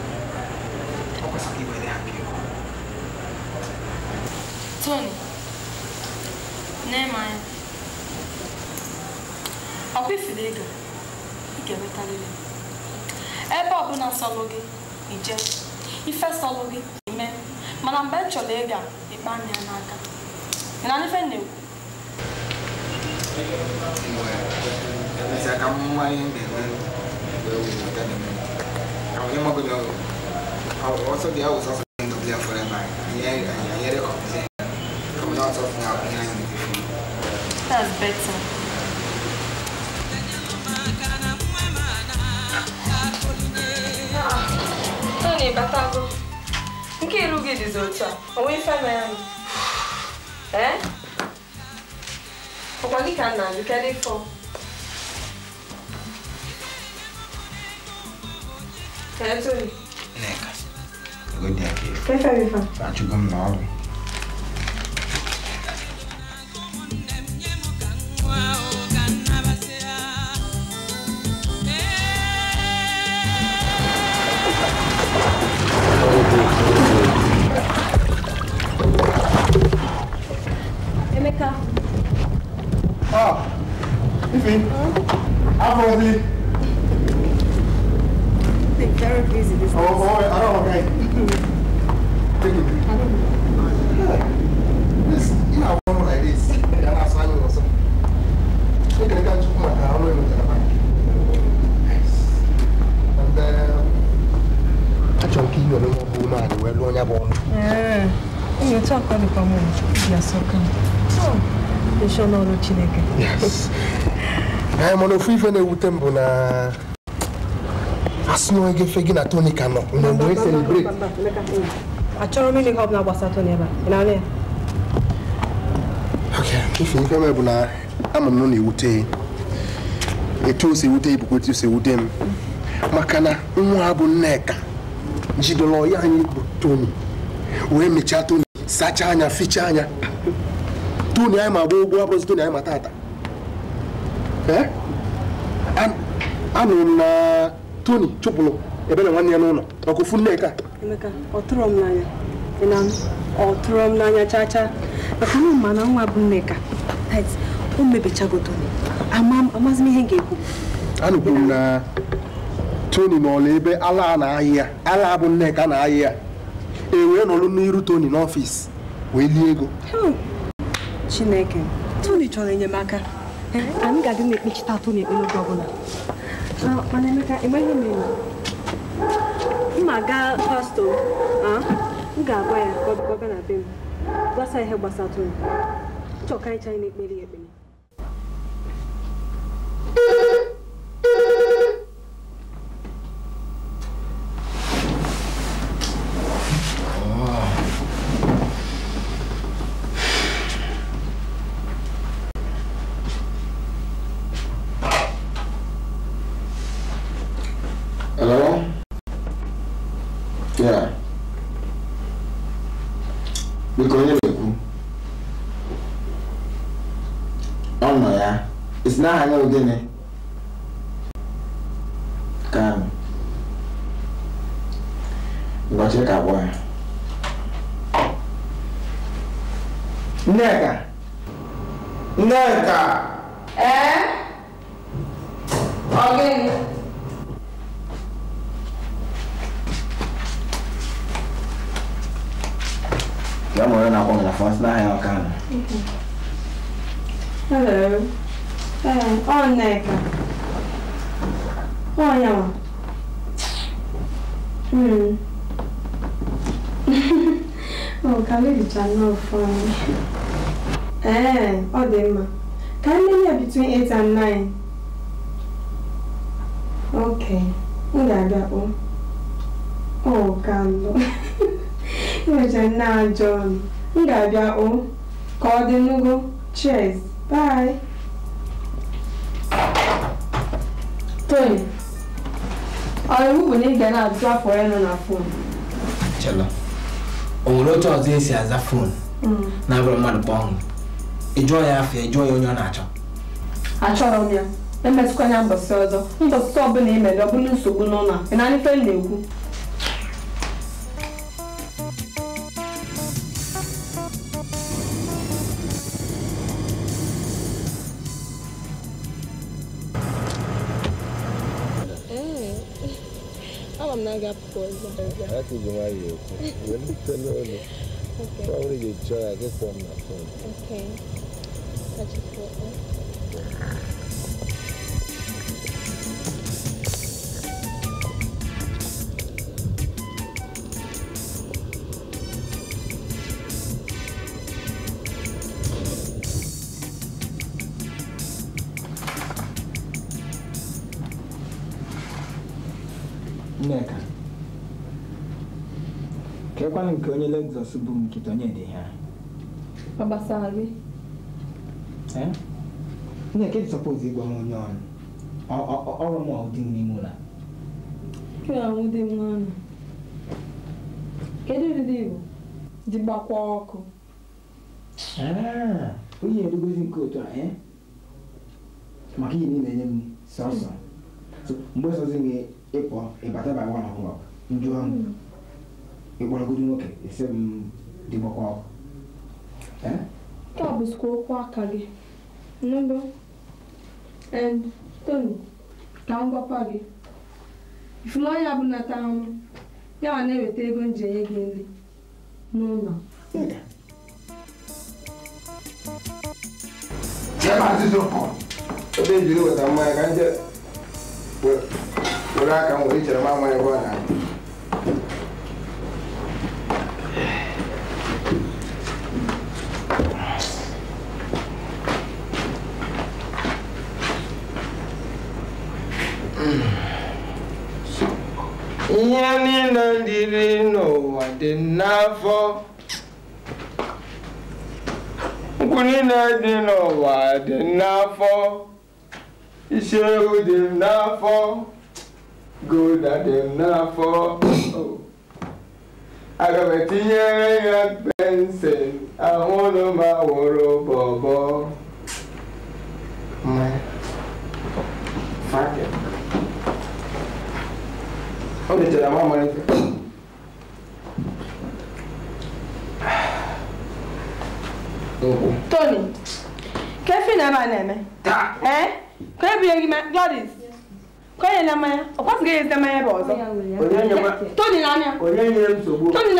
okwu ọ kwesịrị iwere ha biko Tony, nne m anya ọkwa ifuru ego ị ga-enwetarịrị ebe ọbụla sọlụ gị ije ife sọlụ gị ime mana mgbe m chọrọ ịga ịkpa anya ya n'aka ị na ife na-ekwu ọsọ dị ahụ sọsọ ndụ dị afọ ebe anyị anyere kọmpiuta kọmpiuta ọsọ fún akụnye anyị n'ife. That's better. 5 lughi di sozza, o in É? Eh? Ho qualche canale, che è fo. Che è tu? Neca. Guardi anche Wow. Emeka. Ah, Ify, hmm? how was it? They're very busy Oh, oh, I don't okay. Thank you. I don't Yeah. This, you know, one like this, and I saw you or something. Look at the guy, took my car, And, um, I don't you, I know who, man, You talk about the problem, you're so kind. n'ọrụ Chineke mana ofu ife na-ewute m bụ na asị na gị na Tony ka nọ mgbe mgbe e celebrate achọrọ m ịnụ ihe ọbụla gbasara Tony ebe a n'ala ya ife ife m bụ na ama m na ewute etu o si ewute ibukwa etu o si ewute m maka na nwa ha bụ Nneka jidoro anyị bụ Tony wee mechaa Tony sachaa anya fichaa anya Eh? Uh, tony anyị ma gba ụgwọ abụrụzi tony anyị ma tata anụrụ m na e, e, e, tony chụpụrụ ebe na nwanne ya n'ụlọ ọkụ fu nneka ọ tụrụ m n'anya ọ tụrụ m n'anya chaa chaa maka na ma na nwa bụ nneka o mebechago toni amazi m ihe m ga-ekwu anụkwuru m na tony n'ọla ebe ala na-ayị ala bụ nneka na-ayị ya e wee nọlụ n'iru tony n'ọfis wee lie ego Chineke Tony chọrọ enyemaka anyị ga-adị na-ekpechita Tony ekpe n'oge ọbụla mana Emeka enweghị m enyi mma gaa pastọ m ga-agwa ya ka ọ bịa na be m gbasa ihe gbasa Tony chọọ ka anyị chanye na-ekpere ya ekpere biko onye na-ekwu ọnọ ya isi na aha ya ogene ka ngọchị ka abụọ ya nneka nneka Ee, eh, ọ dị mma. Ka nne ya between 8 and 9. Okay, m ga-abịa kpọ. Ọ ka nọ. Enwecha nne ajọ M ga-abịa Ka Cheers. Bye. Tony, ọ iwu bụ na ị ga na na fon. o nwere otu fon? Mm. na agwara mmadụ kpọọ ọnwụ ịjụọ ya afọ ịjụọ ya onye ọ na-achọ achọrọ m ya emetụkwa ya mbọsị ọzọ ndọsịta ọbụla ị mere ọ bụla nsogbu n'ụlọ ị na ife na-ekwu ama m na-aga apụkwa ọzọ Okay. Probably try, I guess I'm not. Okay. nke onye Lexus bụ nkịta onye dị ha. ọ gbasara gị nne kedu sọpọz ịgwa m onye ọrụ ọrụ m ọdị m n'ime ụlọ kedu ụdịdị igbo dị gbakwa ọkụ onye erugozi nke otu a maka ihe niile enye m sọsọ mgbe sọzi gị ịpụ ịbata by one o'clock njụọ m hmm. ịkpọrọgodi nwoke esi m dịgbakwa ọkụ nke a bụzikwa okwu aka gị nụdụ toni ka m gwakwa gị ifumanya bụ nata ahụ ya ma na-eweta ego m ji enye gị nri n'ụlọ ebe ejiri weta mmanya ka nje were aka m were ichere m amaghị ebe ọ na-abịa mmiri n'ụwa dị n'afọ nkwụ niile dị n'ụwa dị n'afọ isi ewu dị m n'afọ gouda dị m n'afọ aga etinyere ya pensụl ahụ ụlọ m bọbọ ọ Tony kefe na ebe na-eme ee ka ọ kwasịghị ebe ọzọ Tony Tony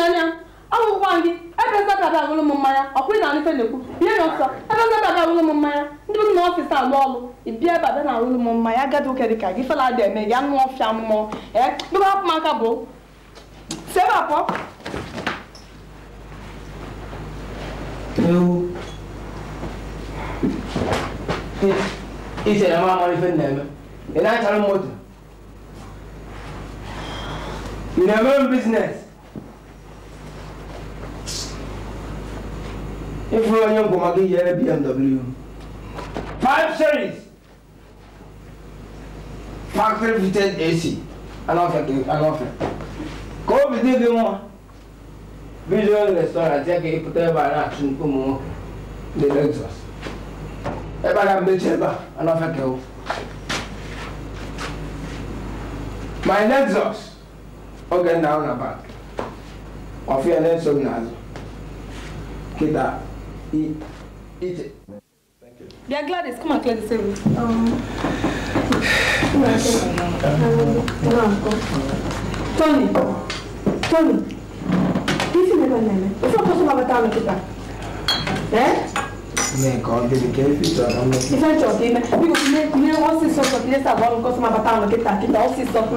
ọ gị ebe nzapịaba agụrụ m mmanya ọkwụ ị na anụfe na ya ihe na ọsọ ebe nzapịaba m mmanya ndị na ọfịs alụ ọlụ ịbịa ebe abịa na m mmanya gị fela dị eme ya anụ ọfịa mmụọ ee bụ si ebe ewu ite na mamar fin neme ina tarin moto ina men business ifuru onye ngwoma gị yere bmw five series factory fitted ac anọfe ka obi dị gị nwa Vision Restaurant yake ipo teba na tunkumu de Lexus. Eba na mecheba anafeke huko. My Lexus oge na ona back. Wafia Nelson nazo. Kita i ite. Thank you. Yeah, Gladys, come and clear the table. Um, no, no, no. Tony, Tony, nemmeno nemmeno. Non so cosa mi avete messo qua. Eh? Ne cogli di che figlio non mi fa ciò che mi dico ne ne ho si sotto che sta buono cosa mi avete messo che sta che ho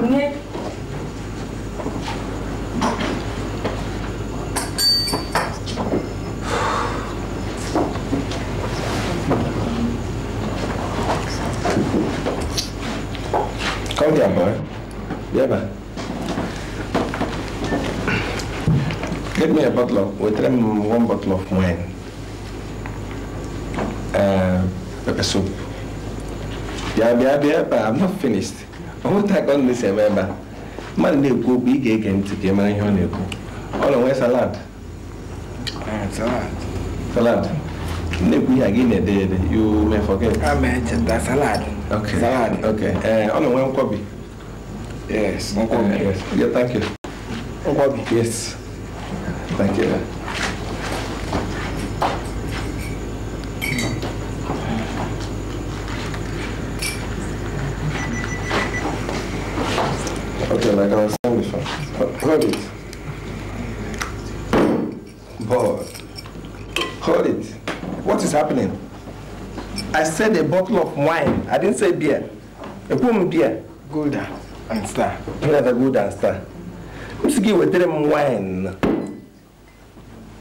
boy. Yeah, man. get me a bottle of, wetara m one bottle of wine, uh, pepper soup. bịa bịa bịa ebe a, I'm not finished. ọnwụta ka ọ na-esi eme ebe a mmadụ na-ekwu okwu ị ga-ege ntị ka ị mara ihe ọ na-ekwu ọ na-enwe salad salad na-ekwu ihe a gị na-ede ede you may forget ah, salad okay ee ọ na-enwe nkwobi yes nkwobi uh, yes thank you nkwobi yes Thank you. Okay, like I was saying before, hold it. Board. Hold it. What is happening? I said a bottle of wine. I didn't say beer. A boom beer. Golden and star. Beer the golden star. Let's give a wine?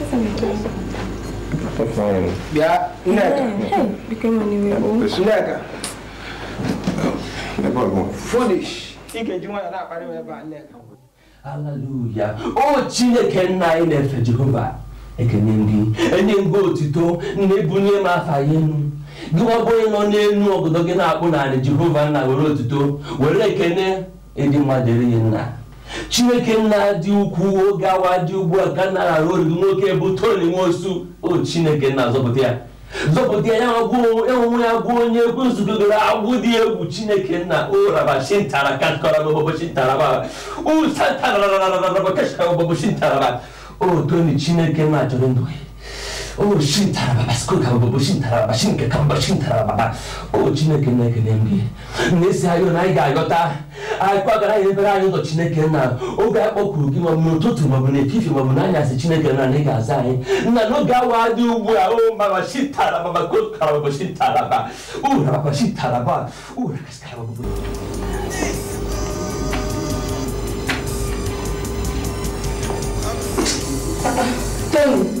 bịa o chineke nna anyị na-efe jehova ekene gị enye gị otito na ebunye m afa ya enu gị gbagbo onye nọ n'elu obodo gị na-akpụ narị jehova nna were otito were ekene ịdị mmadụ eri nna chineke nna dị ukwu oge awa dị ugbu a ka nara oriri nwoke bụ toni nwosu o chineke nna zọpụta ya zọpụta ya enwe ya gụọ onye egwu nzukọ gara agwụ dị egwu chineke nna ụrabachintarabaụsatarararabakasharababụchintaraba o toni chineke nna chọrọ ndụ ya 오 신타라바바 스쿨카보보 신타라바 신케캄바 신타라바바 오 진에게 내게 냄비 내세하여 나이가 알겠다 알과가라 일베라 아니도 진에게 나 오가 꼬꾸기 뭐뭐 토트 뭐뭐네 피피 뭐뭐나 야세 진에게 나 내가 아사해 나 너가 와디 우부야 오 마마 신타라바바 꼬카라바보 신타라바 우라바바 신타라바 우라카스카라바보 Tony.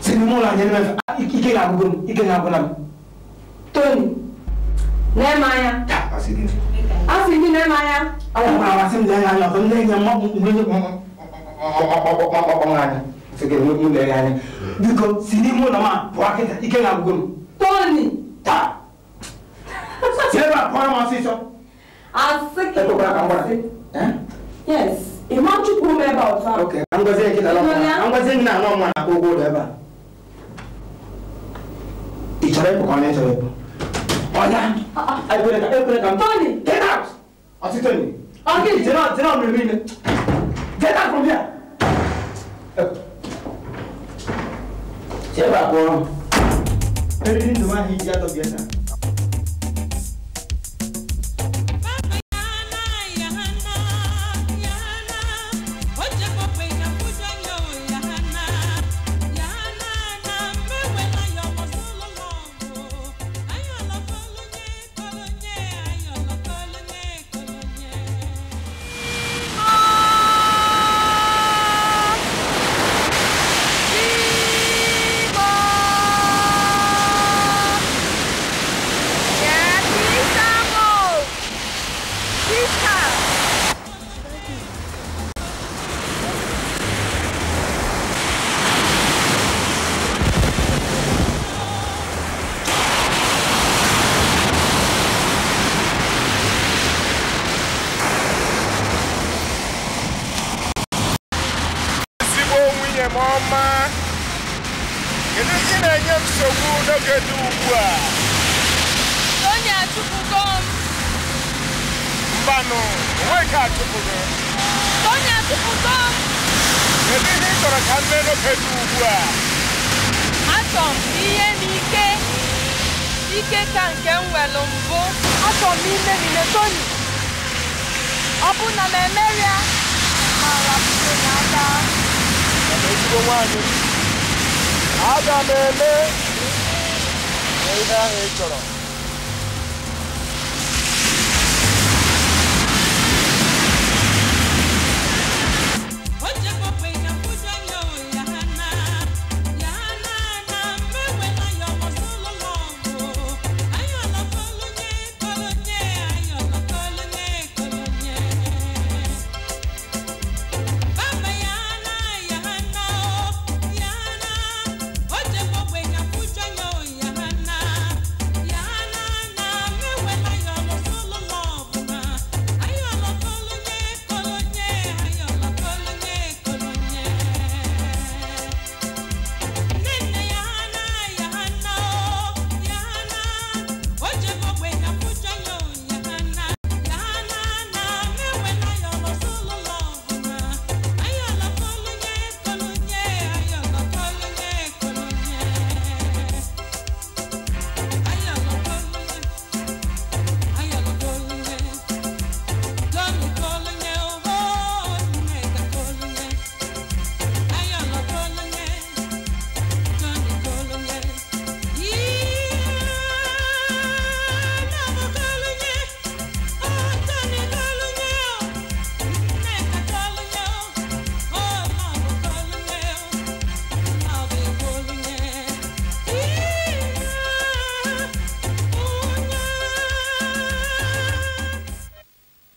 sini mu la ɲɛnɛmɛ fɛ ike ka gogo ni ike ka gola mi. tóni nɛɛmaya. a sigi a sigi nɛɛmaya. awo ma awa sini lɛ yan lɔtɔ ne ɲɛ ma mun ne ɲɛ sigi mu mu lɛ yan biko sini mu nama bɔ a kɛ tan ike ka gogo ni. tóni. ta sɛ b'a kɔrɔ ma sisan. a sigi. ɛ ko k'a kan bɔ la. yes. Imam Chukwu member of our okay angozie kila la angozie na anọ mwa na kogo ebe a ichọrọ ịpụ ka ọ na-echọrọ ịpụ ọya ekwere ka ekwere ka tony get out ọtị tony ọkị jere jere ọmụrụ niile get out from here chebe akpọrọ eriri ndụ nwaanyị iji atọ bịa taa